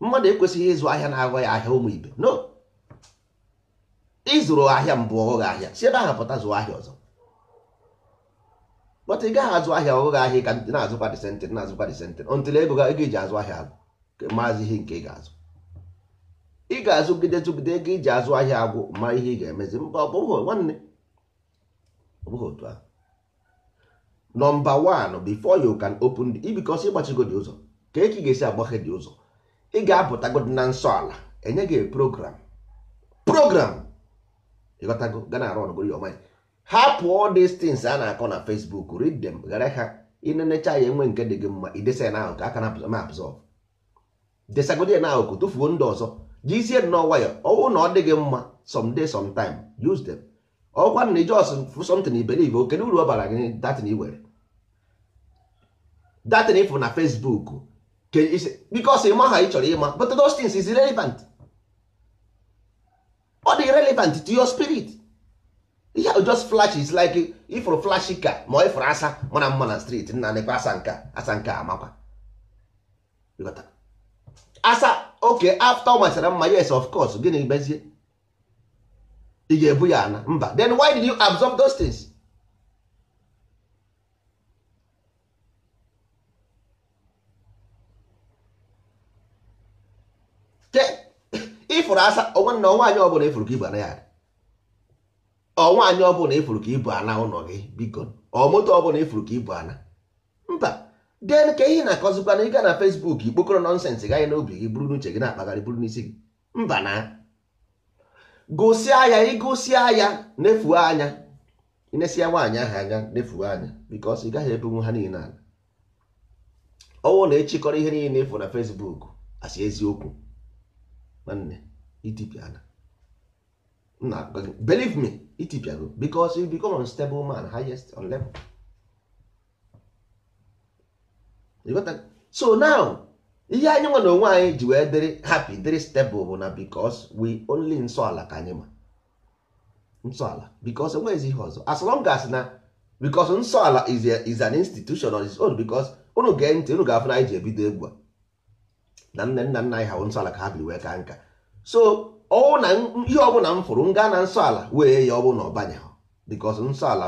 mmadụ ekwesịghị ịzụ ahịa na-aghọ ya ahịa ụmụ ibe no ịzụrụ ahịa mbụ ọghọ gị ahịa si ebe ahụ pụta zụ ahịa ọzọ bọta ị gaghị azụ ahịa ọghụghị ahịa ka na-azụkwa dịsentịn na-azụkwa dịsentịn ọntụl ego ego eji azụ ahịa agụ maazị ihe nke ị ga-azụ ị ga-azụgide zụgide ego iji azụ ahịa agwụ ma ihe ị ga-emezi mba ọ bụghị nwanne ọ otu ahụ nọmba one before you can open the because ịgbachigo ụzọ ka eke ga-esi agbaghe dị ụzọ ị ga-apụtago na nsọ ala enye gị program program ịghọtago gana arụ ọnụgoro ya ọmanya hapụ all these a na-akọ na Facebook read dem ghara ha inenecha ya enwe nke dị gị mma idesa ya n'ahụ ka aka na-apụzọ ma apụzọ desagodi ya n'ahụ ka tufuo ndị ọzọ jizie nnọọ nwayọ ọwụ na ọ mma gị mma someday sometime use them ọkwa na ijos something believe oke uru ọ bara gị datin were datin ịfụ na Facebook because ịma ha ị chọrọ ịma but those things is irrelevant ọ dị relevant to your spirit ihe ahụ just flash is like ifụrụ flash ka ma ọ ifụrụ asa mana mma na street nna nekwa asa nka asa nka amakwa asa oke afta ọ masịra mma yes of course gịnị bezie ị ga-ebu ya ana mba then why did you absorb those things? ịfụrụ <coughs> asa nwanne ọnwaanyị ọbụla ịfụrụ ka ibu ana ya ọnwaanyị ọbụla ịfụrụ ka ibu ana ụlọ gị biko ọ moto ọbụla ịfụrụ ka ibu ana den ka ihe na-akọzikwa na ịga na Fesbuk ikpokoro nọnsensị gaghị n'obi gị buru n'uche gị na-akpagharị buru n'isi gị mba na gosia ya ịgosia ya nefuo anya inesia nwaanyị ahụ anya nefuo anya because ị gaghị ebenwu ha niile ala ọnwụ na-echikọrọ ihe niile efu na Fesbuk asị eziokwu nwanne itipiana believe me itipiago because you become unstable man highest on level so now ihe anyị nwa na onwe anyị ji wee dịrị hapi dịrị stable bụ na because we only nsọ ala ka anyị ma nsọ ala because enweghịzi ihe ọzọ as long as na because nsọ ala is, is an institution on its own because unu gee ntị unu ga-afụ na anyị ji ebido egwu a na nne nna nna anyị ha nsọ ala ka ha biri wee ka nka so ọwụ na ihe ọbụla m fụrụ m gaa na nsọ ala wee ya ọ bụ na ọ banye because nsọ ala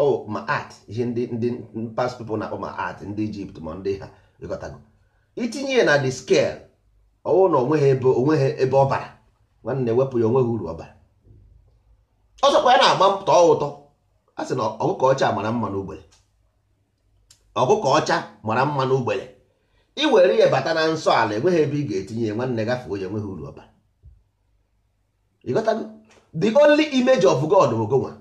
o ma art ihe ndị ndị past people na-akpọ ma art ndị Egypt ma ndị ha ịghọtago itinye ya na the scale ọwụ na onweghị ebe onweghị ebe ọ bara nwanne wepụ ya onweghị uru ọ bara ọzọkwa ya na-agba tọọ ụtọ a sị na ọkụkọ ọcha mara mma n'ugbere ọkụkọ ọcha mara mma n'ugbere i were ya bata na nsọ ala enweghị ebe ị ga-etinye ya nwanne gafee onye enweghị uru ọ bara ịghọtago the only image of God bụ gonwa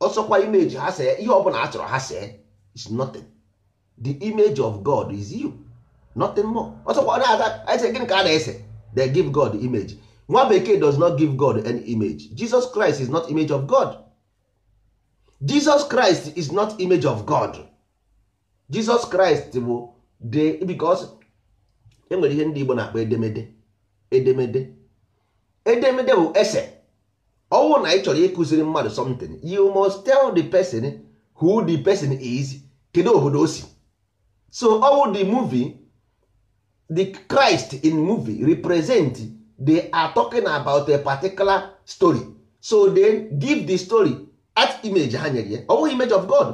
ọsọkwa image ha see ihe ọbụla a chọrọ ha see is nothing the image of God is you nothing more ọsọkwa na-aga ese gịnị ka a na-ese they give God image nwa bekee does not give God any image Jesus Christ is not image of God Jesus Christ is not image of God Jesus Christ bụ the because enwere ihe ndị Igbo na-akpọ edemede edemede edemede bụ ese ọnwụ na ị chọrọ ịkụziri mmadụ something you must tell the person who the person is kedu obodo o si so ọnwụ the movie the Christ in movie represent they are talking about a particular story so they give the story at image ha nyere ya ọnwụ image of God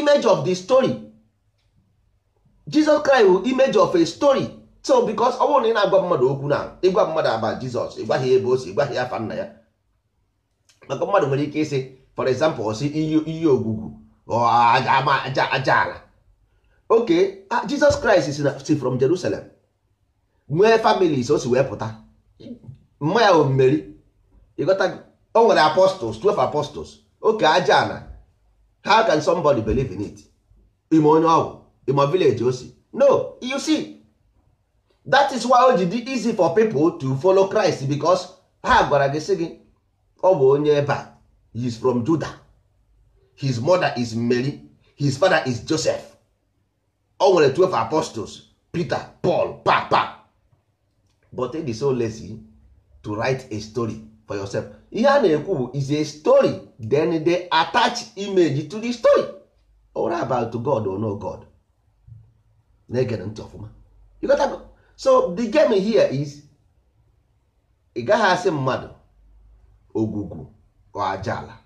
image of the story Jesus Christ bụ image of a story so because ọnwụ na ị na-agwa mmadụ okwu na ịgwa mmadụ aba Jizọs ịgwaghị ebe o si ịgwaghị afa nna ya maka mmadụ nwere ike ịsị for example ọsị iyi ogwugwu aja ala oke Jizọs Kraịst si from Jerusalem nwee families o si wee pụta mma ya omeri ịghọta o nwere apostles 12 apostles oke aja ala how can somebody believe in it ime onye ọgwụ ime village o no you see that is why o ji dị easy for people to follow Christ because ha gwara gị si gị ọ bụ onye ebe he is from Juda. his mother is Mary his father is Joseph o nwere 12 apostles Peter Paul papa but it is so lazy to write a story for yourself ihe a na-ekwu bụ is a story then they attach image to the story or about God or no God na-egere ntị ọfụma so the game here is ị gaghị asị mmadụ ogwugwu or ajala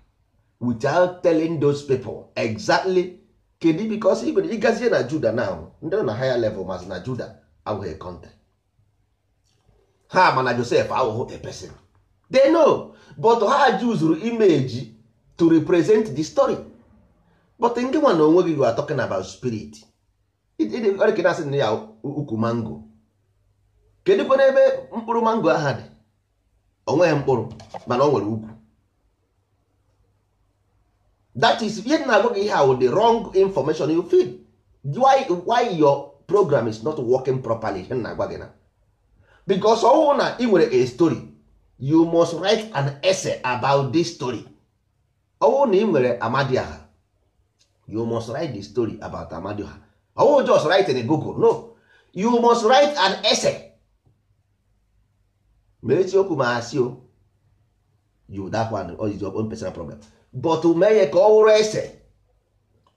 without telling those people exactly kedu because even ịgazie na juda now ndị nọ na higher level mas na juda abụghị kọntent ha mana josef awụghị a person they know but ha juzuru imeji to represent the story but nke nwa na onwe gị are talking about spirit ọrịkena asị na ya ukwu mango kedụ kwana ebe mkpụrụ mango aha dị o nweghị mkpụrụ mana o nwere ukwu that is ihe na-agwa gị ihe ahụ the wrong information you feel why, why your program is not working properly ihe na-agwa gị na because ọwụ na ị nwere a story you must write an essay about this story ọwụ na ị nwere amadiaha you must write the story about amadiaha ọwụ just write in google no you must write an essay ma eziokwu ma asị o you that one or is your personal problem but mee ya ka ọ wụrụ ese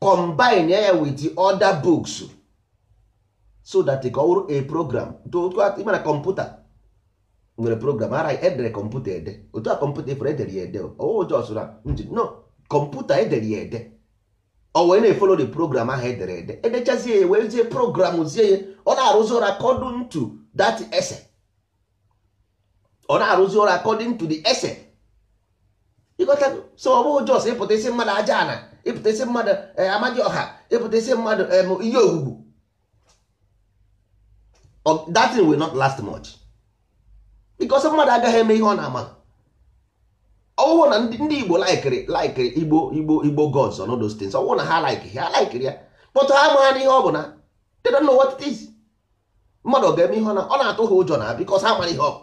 combine ya with the other books so that ka ọ wụrụ a program na kọmputa nwere program ara edere kọmputa ede otu a kọmputa efere edere ya ede ojosụra njin no kọmputa edere ya ede ọ wee na-efolo the program ahụ edere ede edechazie ya wee zie program zie ya ọ na-arụzi ụra kọdụ ntu that ese ọ na-arụzi ọrụ according to the ese ịgọtago so ọ bụghị jos ịpụta isi mmadụ aja ana ịpụta isi mmadụ amadị ọha ịpụta isi mmadụ ihe ogwugwu that thing will not last much because mmadụ agaghị eme ihe ọ na-ama ọwụwụ na ndị igbo laikiri laikiri igbo igbo igbo gods on those things ọwụwụ na ha laikiri ha laikiri ya kpọtụ ha amaghị n'ihe ọ bụ na they don't know what it is mmadụ ga-eme ihe ọ na ọ na-atụ ha ụjọ na because ha mara ihe ọ bụ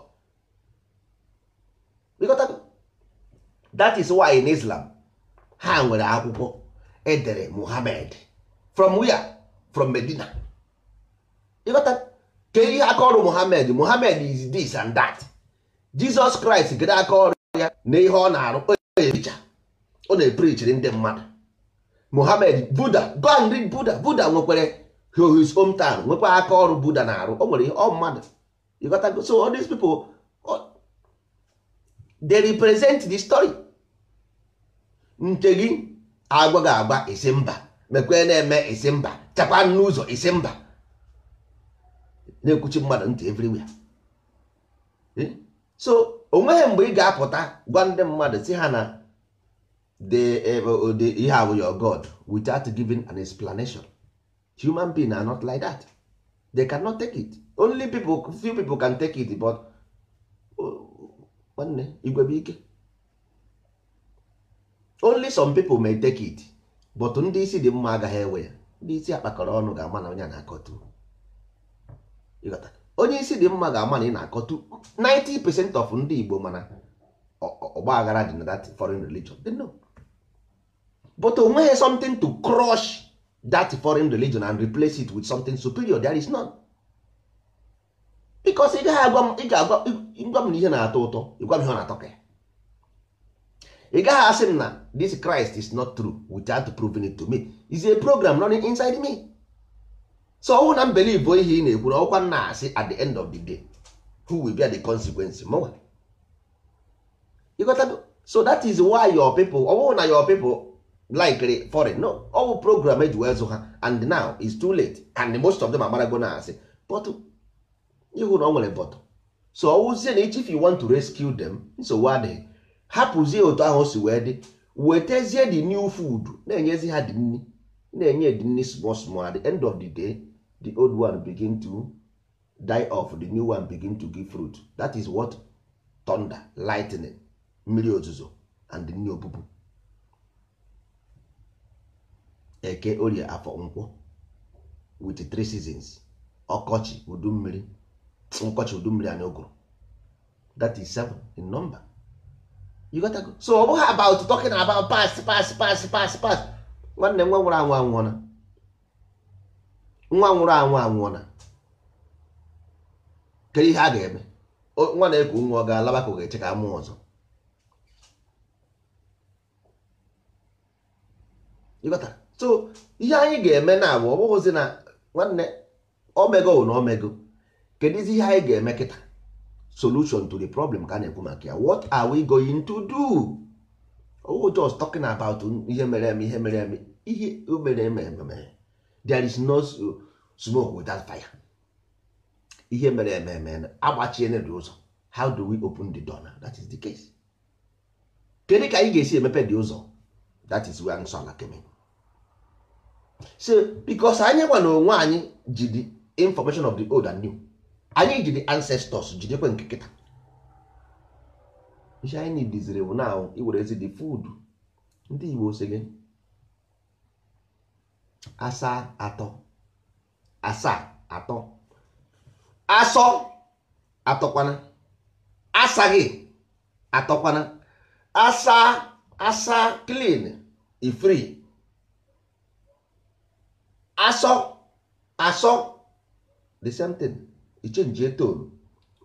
that is why in islam ha nwere akwụkwọ edere muhammad from where from medina ka ihe aka ọrụ muhammad muhammad is this and that jesus christ gịrị aka ọrụ ya na ihe ọ na-arụ ọ na-eprichiri ndị mmadụ muhammad buda go Buddha read buda buda nwekwara his town nwekwa aka ọrụ buda na-arụ o nwere ihe ọ mmadụ so all these people they represent the story nke gị agwa gị agba isi mba mekwe na-eme isi mba chakwa n'ụzọ isi mba na-ekwuchi mmadụ ntị everywhere so onweghị mgbe ị ga-apụta gwa ndị mmadụ si ha na ihe eh, abụ your god without giving an explanation human being are not like that they cannot take it only people few people can take it but nwanne igwebike only some people may take it but ndị isi dị mma agaghị ewe ya ndị isi akpakọrọ ọnụ ga-ama na onye na-akọtụ onye isi dị mma ga-ama na ị na-akọtụ 90% of ndị Igbo mana ọgba aghara dị na that foreign religion they know but onweghị something to crush that foreign religion and replace it with something superior there is none. bikos ị gaghị agwa m ị ga-agwa m na ihe na-atọ ụtọ ịgwa m ihe ọ na-atọ ka ị gaghị asị m na this Christ is not true without proving it to me is a program running inside me so ọwụ na mbelibo ihe ị na-ekwu na ọkwa na-asị at the end of the day who will be the consequence mụnwa ịghọtago so that is why your people ọwụ na your people likely foreign no ọwụ program eji wee zụ ha and now it's too late and most of them agbarago na asị but ihu na ọ nwere so ọwụzie na if you want to rescue them nsogbu adịghị hapụzie otu ahụ si wee dị ezie the new food na-enyezi ha dị nri na-enye dị small small at the end of the day the old one begin to die off the new one begin to give fruit that is what thunder lightning mmiri ozuzo and new obubu eke orie afọ nkwọ with three seasons ọkọchị udu mmiri nkọchị udu mmiri anyị ogoro that is seven in number you got go. so ọ bụghị about talking about past past past past past nwanne nwa nwụrụ anwụ anwụọna nwa nwụrụ anwụ anwụọna kedu ihe a ga-eme nwa na-eku nwa ọ ga-alaba ka ọ ga-eche ka mụọ ọzọ so ihe anyị ga-eme na abụ ọ bụghịzi na nwanne omego na omego kedụzi ihe anyị ga-eme kịta solution to the problem ka a na-ekwu maka ya what are we going to do oh just talking about ihe mere eme ihe mere eme ihe mere eme eme there is no smoke without fire ihe mere eme eme agbachie dị ụzọ how do we open the door now that is the case kedu ka anyị ga-esi emepe dị ụzọ that is where nsọ ala kemị so because anyị gwa onwe anyị ji the information of the old and new anyị ji di ancestors jidekwe nke kịta ihe anyị diziri bụ na iwere ezi the food ndị Igbo si gị asaa atọ asaa atọ asọ atọkwana asaghị atọkwana asa asa clean ifri asọ asọ the same thing ichenjie etonu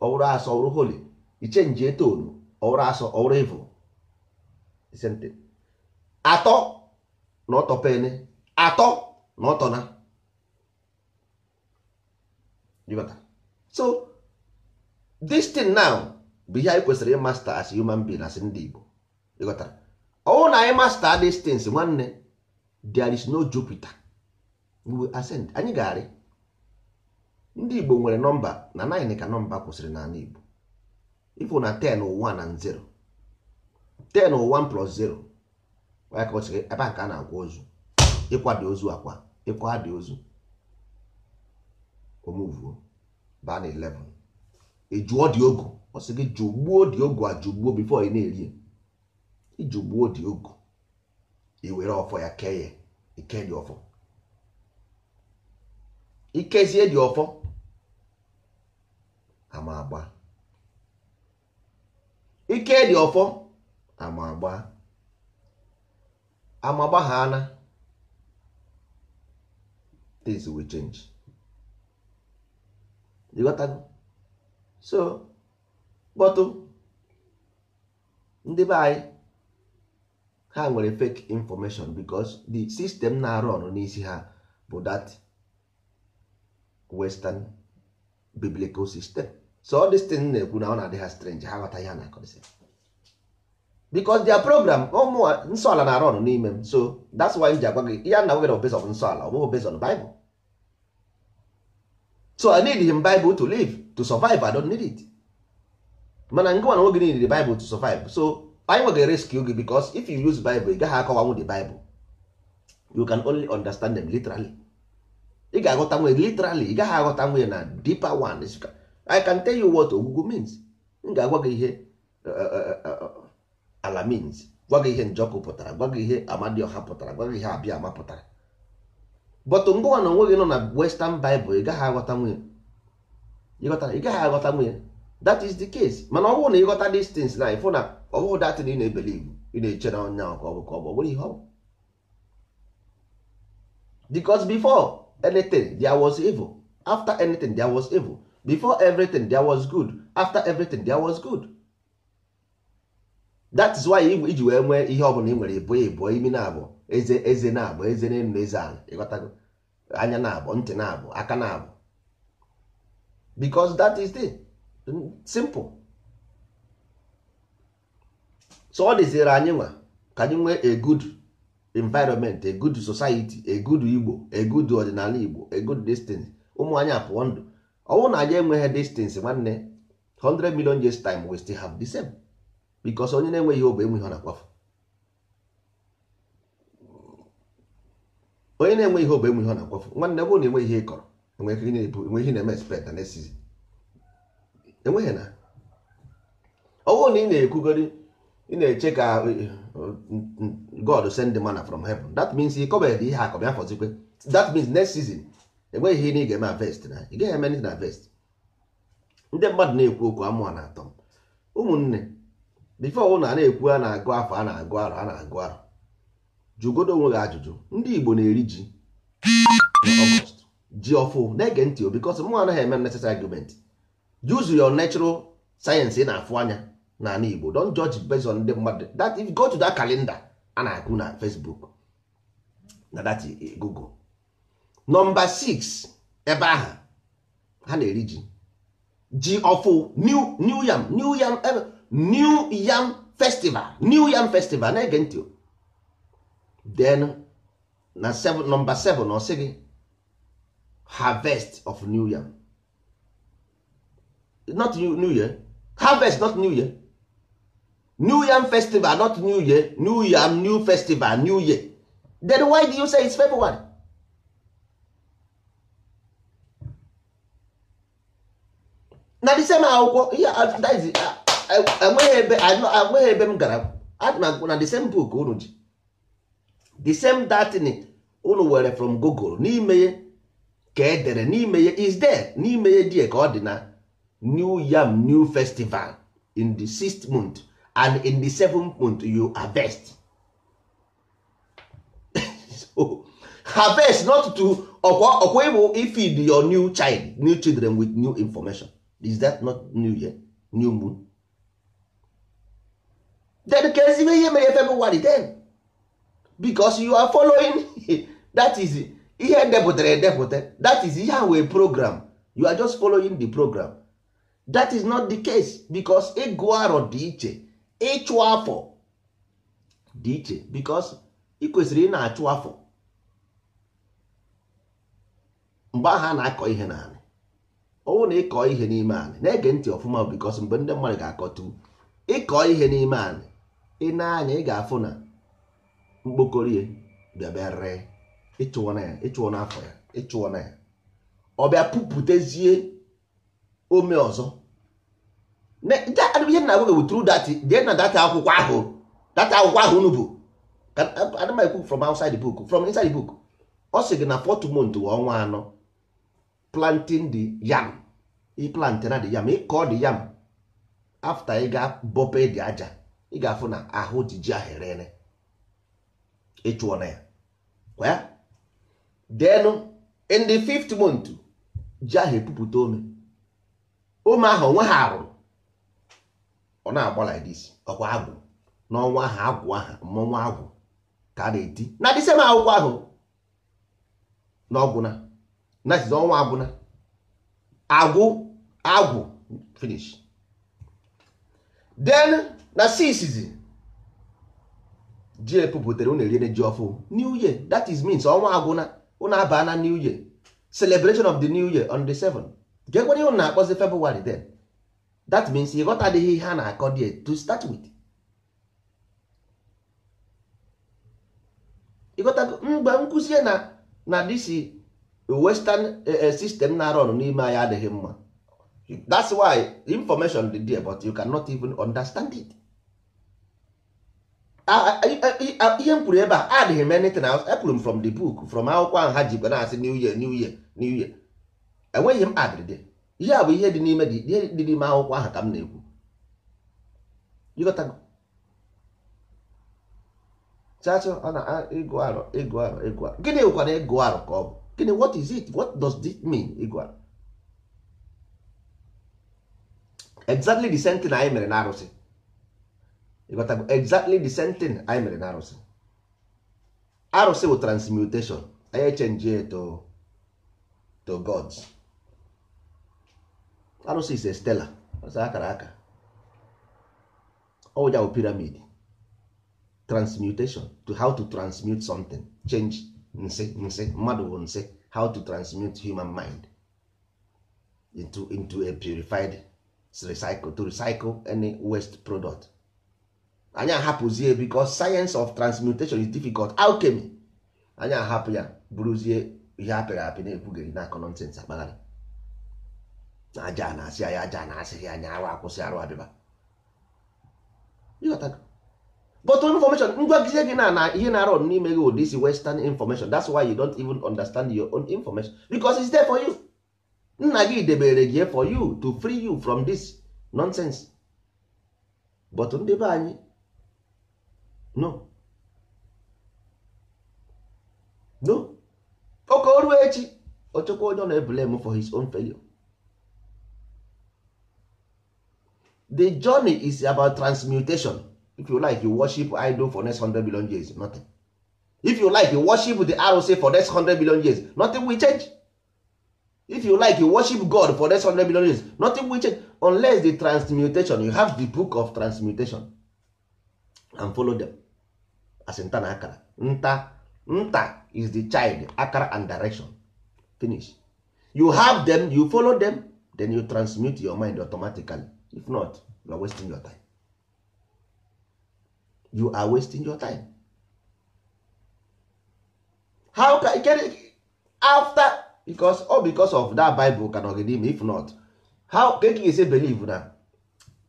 ọwụrụ asọ ọwụrụ holi ichenjie etonu ọwụrụ asọ ọwụrụ evo atọ na ọtọ pene atọ na ọtọ na so this thing now bụ ihe anyị kwesịrị ịmasta as human being as ndị Igbo ịghọtara ọwụ na anyị masta these nwanne there is no Jupiter we will ascend anyị ga-arị ndị Igbo nwere nọmba na 9 ka nọmba kwụsịrị n'ala Igbo ifụ na 10 ụwa na 0 10 ụwa plus 0 ka ebe ka a na agwa ozu ịkwado ozu akwa ịkwa dị ozu omuvuo baa na 11 dị ogo ọ gị jụgbuo dị ogu ajụgbuo bifo na-eri ijụgbuo dị ogo iwere ọfọ ya kee ya ike dị ọfọ ikezie dị ọfọ ama ike dị ọfọ amagba agba ama ana things will change so kpọtụ um, ndị be anyị ha nwere fake information because the system na-arụ ọrụ n'isi ha bụ that western biblical system so all this thing na-ekwu na ọ na-adị ha strange ha ghọta ihe a na-akọrịsị because their program ụmụ oh, nsọ ala na-arụ ọrụ n'ime m so that's why m ji agwa gị ya na nwere obezon nsọ ala ọ bụghị obezon Bible so I need him Bible to live to survive I don't need it mana ngịnwa na nwoge niile Bible to survive so anyị nwegị rescue gị because if you use Bible ị gaghị akọwanwu the Bible you can only understand them literally ị ga-aghọta nwunye literally ị gaghị aghọta nwunye na deeper one i can tell you what ogwugwu means m ga-agwa gị ihe eh, eh, eh, ala means gwa gị ihe njọkụ pụtara gwa gị ihe amadioha pụtara gwa gị ihe abịa ama pụtara bọtụ ngụwa na onwe gị nọ na western bible ị gaghị aghọta nwunye ị gaghị aghọta nwunye that is the case mana ọ bụrụ na ịghọta these things na ịfụ na ọ bụghị datin ị na-ebele iwu ị na-eche na onye ahụ ka ọ bụ ka ọ bụ ọ bụrụ ihe ọ bụ because before anything there was evil after anything there was evil before everything there was good after everything there was good that is why iji wee nwee ihe ọbụla ị nwere ịbụ ịbụ imi na-abụ eze na-abụ eze na na eze ala ịghọtago anya na-abụ ntị na-abụ aka na-abụ because that is the simple so ọ dịziri anyị nwa ka anyị nwee a good environment a good society a good igbo a good ọdịnala igbo a good destiny ụmụ anyị apụọ ndụ ọnwụ na anyị enweghị distance nwanne 100 million years time we still have the same because onye na-enweghị obe enweghị na-akwafu onye na-enwe ihe enweghị na-akwafu nwanne bụrụ na enweghị ihe ị kọrọ enweghị na-eme expect na nesizi enweghị na ọnwụ na ị na-ekwugori ị na-eche ka God send the manna from heaven that means ị kọbeghị ihe akọbịa fọzikwe that means next season enweghị ihe ị ga-eme avest na ị gaghị eme na avest ndị mmadụ na-ekwu okwu amụọ na atọ ụmụnne bifo ụlọ a na-ekwu a na-agụ afọ a na-agụ arọ a na-agụ arọ jụgodo onwe gị ajụjụ ndị Igbo na-eri ji ji ọfụ na-ege ntị o bikos mụ anaghị eme necessary argument use your natural sayensị ị na-afụ anya n'ala Igbo don judge based on ndị mmadụ that if you go to that a na-akụ na Facebook na that eh, Google nọmba 6 ebe ahụ ha na-eri ji ji ọfụ new new yam new yam new yam festival new yam festival na-ege ntị then na nọmba 7 na ọsị gị harvest of new yam not new year harvest not new year new yam festival not new year new yam new festival new year then why do you say it's february na the same akwụkwọ ihe enweghị ebe m gara adị na the same book unu ji the same datin unu were from google n'ime ka edere n'ime ya is there n'ime ya die ka ọ dị na new yam new festival in the sixth month and in the seventh month you harvest <laughs> so, harvest not to ọkwa ọkwa ịbụ ifid your new child new children with new information is that not new year new moon then ka ezigbo ihe mere february 10 because you are following <laughs> that is ihe depụtara edepụta that is ihe a wee program you are just following the program that is not the case because ịgụ arọ dị iche ịchụ afọ dị iche because ị kwesịrị ị na-achụ afọ mgbe ahụ a na-akọ ihe na ọnwụ na ịkọ ihe n'ime anị na-ege ntị ọfụma bikos mgbe ndị mmadụ ga-akọtu ịkọ ihe n'ime anị ị na-anya ị ga-afụ na mkpokorie bịabịare ịchụọ na ya ịchụọ n'afọ ya ịchụọ na ya ọ bịa pụpụtezie ome ọzọ ihe na-agwa gị wutru dat jee na data akwụkwọ ahụ data akwụkwọ ahụ unu bụ adịmaekwu from outside book from inside book ọ sị gị na fọtụ mont ọnwa anọ planting the yam ị plantera the yam ị kọọ the yam after ị ga-abọpe dị aja ị ga-afụ na ahụ ji ahụ erere ịchụọ na ya kwa ya denụ in the fifth month ji ahụ epupụta ome ome ahụ onwe ha rụrụ ọ na-agba like this ọkwa agwụ n'ọnwa ahụ agwụ aha mmọnwụ agwụ ka a na-eti na disem akwụkwọ ahụ n'ọgwụ na that is ọnwa agwụna agwụ agwụ finish then na sisizi ji epupụtara unu eriene ji ọfụ new year that is means ọnwa agwụna unu abaa na new year celebration of the new year on the 7 gekwenye unu na-akpọzi february then that means ịghọtadịghị ihe a na-akọ die to start with ịghọtago mgbe m na na disi western eh, eh, system na run n'ime anya adịghị mma that's why information dị there but you cannot even understand it ihe m kwuru ebe a adịghị m anything else epụrụ m from the book from akwụkwọ ahụ ha ji na-asị new year new year new year enweghị m adịrịde ihe a bụ ihe dị n'ime dị n'ime akwụkwọ ahụ ka m na-ekwu chacha ọ na ịgụ arụ ịgụ arụ ịgụ arụ gịnị bụkwa na ịgụ arọ ka ọ bụ gịnị what is it what does this mean ị exactly the same thing anyị mere na arụsị ịghọtago exactly the same thing anyị mere na arụsị arụsị bụ transmutation anyị echenji to to gods arụsị is a stela ọsọ akara aka ọwụja bụ pyramid transmutation to how to transmute something change nsị nsị mmadụ bụ nsị how to transmute human mind into into a purified recycle to recycle any waste product anyị ahapụzie because science of transmutation is difficult alchemy anyị ahapụ ya bụrụzie ihe apịrị apị na-ekwugheri na-akọ nọnsens akpagharị na aja na-asị anyị aja na-asịghị anyị arụ akwụsị arụ abịba but information ngwagizie gị na na ihe na arọ n'ime gị ụdị isi western information that's why you don't even understand your own information because it's there for you nna gị debere gị for you to free you from this nonsense but ndị be anyị no no oke oruo echi ochekwa onye ọ na for his own failure the journey is about transmutation if you like you worship idol for next 100 billion years nothing if you like you worship the say for next 100 billion years nothing will change if you like you worship god for next 100 billion years nothing will change unless the transmutation you have the book of transmutation and follow them as nta na akara nta nta is the child akara and direction finish you have them you follow them then you transmute your mind automatically if not you are wasting your time you are wasting your time how can get after because all because of that bible can ogede if not how can you say believe na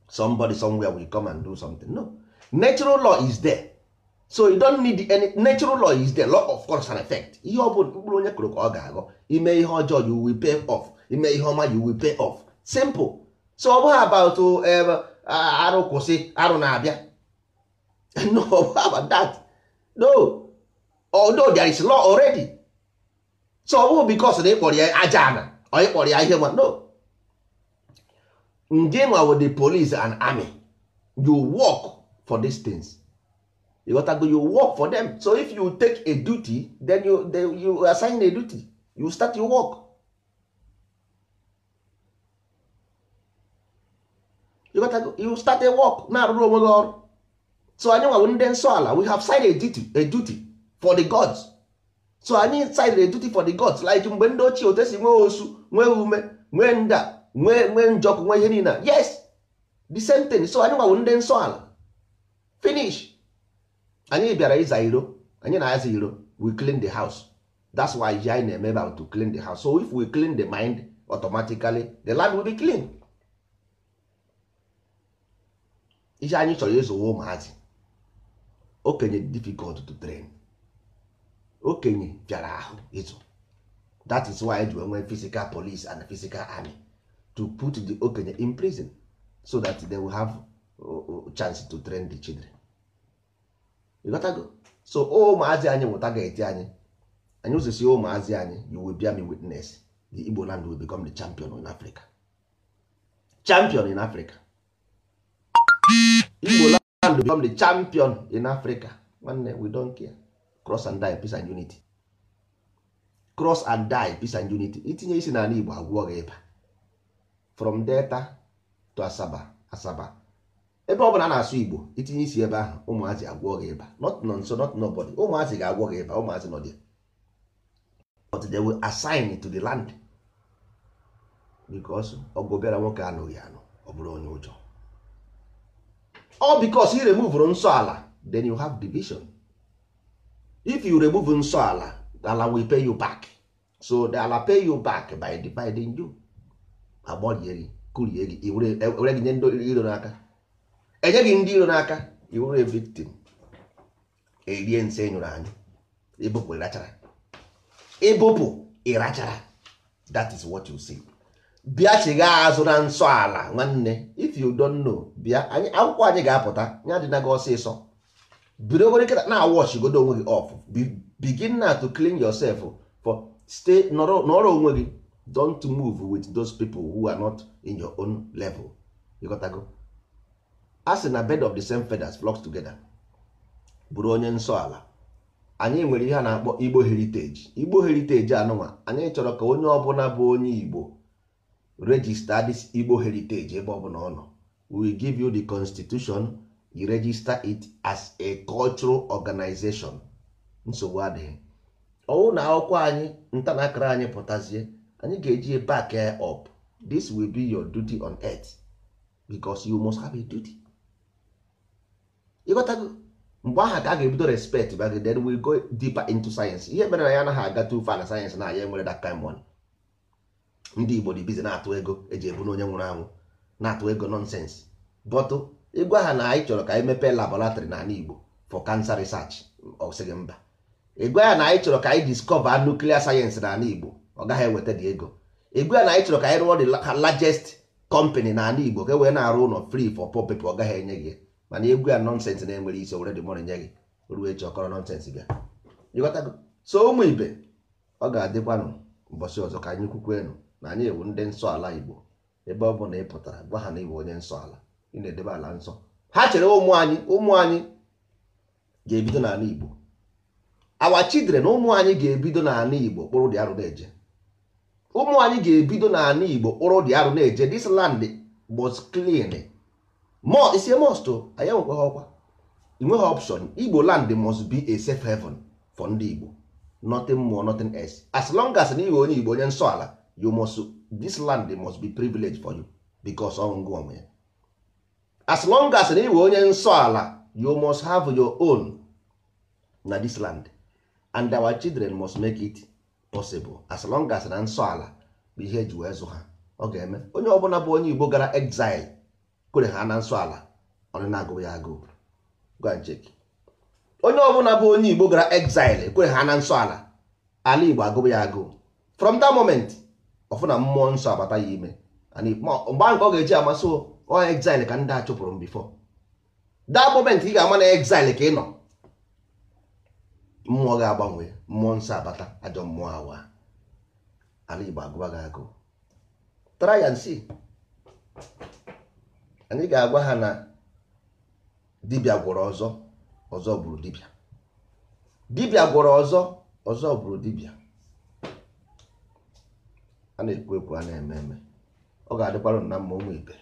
somebody somewhere will come and do something no natural law is there so you don't need any natural law is there law of course and effect ihe obodo mkpụrụ onye kụrụ ka ọ ga-aghọ ime ihe ọjọọ you will pay off ime ihe ọma you will pay off simple so ọ bụghị about um, arụ kwụsị arụ na-abịa <laughs> no how about that no although there is law already so ọ bụrụ because na ịkpọrọ ya aja ana ọ ịkpọrọ ya ihe no nge nwa with the police and army you work for dis things you got to go you work for them so if you take a duty then you, then you assign a duty you start your work you got to go, you start a work na-arụrụ onwe gị ọrụ so anyị nwawo ndị nsọ ala we have signed a duty, a duty for the gods so anyị signed a duty for the gods like mgbe ndị ochie otu esi nwee osu nwee ume nwee nda nwee nwee njọkụ nwee ihe niile yes the same thing so anyị nwawo ndị nsọ ala finish anyị bịara ịza iro anyị na-aza iro we clean the house that's why ya anyị na-eme about to clean the house so if we clean the mind automatically the land will be clean ihe anyị chọrọ ịzụwa ụmụazị okenye difficult to train okenye bịara ahụ ịzụ that is why e ji enwe physical police and physical army to put the okenye in prison so that they will have uh, uh, chance to train the children go so ụmụazị anyị mụta ga-eti anyị anyị ụzọsi ụmụazị anyị you will bear me witness the Igbo land will become the champion in Africa champion in Africa Igbo land and become the champion in africa nwanne we don care cross and die peace and unity cross and die peace and unity itinye isi n'ala igbo agwụọ gị ịba from delta to asaba asaba ebe ọ bụla a na-asụ igbo itinye isi ebe ahụ ụmụazị agwụọ gị ịba not nonso not nobody ụmụazị ga-agwọ gị ịba ụmụazị nọ there but they will assign to the land because ọgụ obere nwoke anụghị anụ ọ bụrụ onye ụjọ all because you remove nsọ ala then you have division if you remove nsọ ala ala will pay you back so the ala pay you back by dividing you agbọlieri kurie gị were gị nye ndị iro n'aka enye gị ndị iro n'aka iwere victim erie nse enyụrụ anyị ịbụpụ e ịrachara ịbụpụ e ịrachara that is what you see. bịa chigha azụ na nsọ ala nwanne if you don't know bịa anyị akwụkwọ anyị ga-apụta ya dị na gị ọsịsọ bidogoro kịta na awọchigodo onwe gị ọf begin na to clean yourself for stay nọrọ onwe gị don't move with those people who are not in your own level ịghọtago a sị na bed of the same feathers flocks together bụrụ onye nsọ ala anyị nwere ihe a na-akpọ igbo heritage igbo heritage anụnwa anyị chọrọ ka onye ọbụla bụ onye igbo register this Igbo heritage ebe ọ bụla ọ nọ we give you the constitution you register it as a cultural organization nsogbu adịghị ọwụ na akwụkwọ anyị nta ntanakara anyị pụtazie anyị ga-eji back up this will be your duty on earth because you must have a duty ịghọtago mgbe aha ka a ga-ebido respect back then we go deeper into science ihe mere na ya anaghị aga too far na science na ya enwere that kind money ndị igbo dị bizi na-atụ ego eji ebu n'onye nwụrụ anwụ na-atụ ego nọnsensị bọtụ ịgwa ha na anyị chọrọ ka anyị mepee labọlatrị n'ala igbo for cancer research ọ sịghị mba ịgwa ya na anyị chọrọ ka anyị discover nuclear science n'ala igbo ọ gaghị eweta dị ego ịgwa ya na anyị chọrọ ka anyị rụọ the largest company n'ala igbo ka e wee na-arụ ụlọ free for poor people ọ gaghị enye gị mana egwu ya nọnsensị na-enwere isi were dị mọrọ nye gị ruo echi ọkọrọ nọnsensị bịa so ụmụ ibe ọ ga-adịkwanụ ụbọchị ọzọ ka anyị kwukwe na anyị ewu ndị nsọ ala igbo ebe ọ bụ na ị pụtara gwa ha na ịbụ onye nsọ ala ị na-edebe ala nsọ ha chere ụmụ anyị ụmụ anyị ga-ebido n'ala igbo awa chidre na ụmụ anyị ga-ebido n'ala igbo kpụrụ dị arụ na-eje ụmụ anyị ga-ebido n'ala igbo kpụrụ dị arụ na-eje dis land was clean isi most anyị enwekwa ọkwa inweghị option igbo land must be a safe heaven for ndị igbo nothing more nothing else as long as na ịghọ onye igbo onye nsọ ala you must this land must be privilege for you because ọṅụṅụ onwe ya as long as na iwe onye nsọ ala you must have your own na this land and our children must make it possible as long as na nsọ ala bụ ihe eji wee zụ ha ọ ga-eme onye ọbụla bụ onye Igbo gara exile kwere ha na nsọ ala ọ na-agụ ya agụ onye ọbụla bụ onye Igbo gara exile kwere ha na nsọ ala ala Igbo agụụ ya agụụ from that moment ọfụ na mmụọ nsọ abata ya ime mgbe nke ọ ga-eji amasị ọ exile ka ndị a chụpụrụ m bifo that moment ị ga-ama na exile ka ị nọ mmụọ ga-agbanwe mmụọ nsọ abata ajọ mmụọ awa ala Igbo agụba gị agụ try and anyị ga-agwa ha na dibịa gwọrọ ọzọ ọzọ gburu dibịa dibịa gwọrọ ọzọ ọzọ gburu dibịa a na-ekwu ekwu a na-eme eme ọ ga-adịkwara na mma ụmụ ibe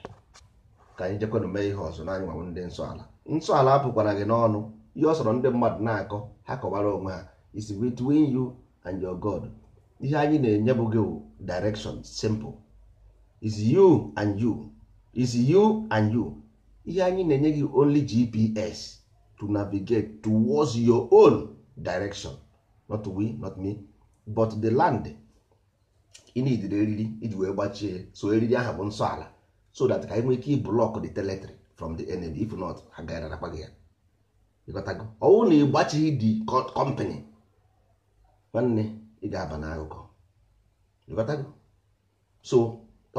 ka anyị jekwanụ mee ihe ọzọ n'anyị nwanwe ndị nsọ ala nsọ ala apụkwara gị n'ọnụ ihe ọ sọrọ ndị mmadụ na-akọ ha kọwara onwe ha is between you and your God ihe anyị na-enye bụ gị direction simple is you and you is you and you ihe anyị na-enye gị only GPS to navigate towards your own direction not we not me but the land ị na-idiri eriri iji wee gbachie so eriri ahụ bụ nsọ ala so that ka anyị nwee ike iblọk the teletrị from the enemy if not ha na gị ya ịghọtago ọwụ na ịgbachighị dị kọmpanị nwanne ị ga-aba n'akụkọ ịghọtago so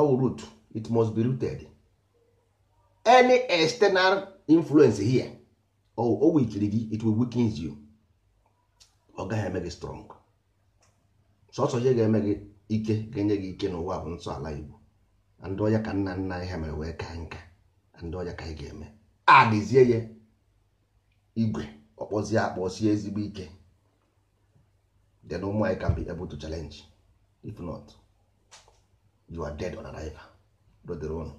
ọwụ root it must be rooted any external influence here o wikiri gị it will weakens you ọ gaghị eme gị strong sọsọ ihe ga-eme gị ike ga-enye gị ike n'ụwa bụ nsọala Igbo ndị ọya ka nna nna ihe ha mere wee kaa nka ndị ọya ka anyị ga-eme adịzie ya igwe ọkpọzie akpọsie ezigbo ike na ụmụ anyị ka be able if not you are dead on arrival dodere ụnụ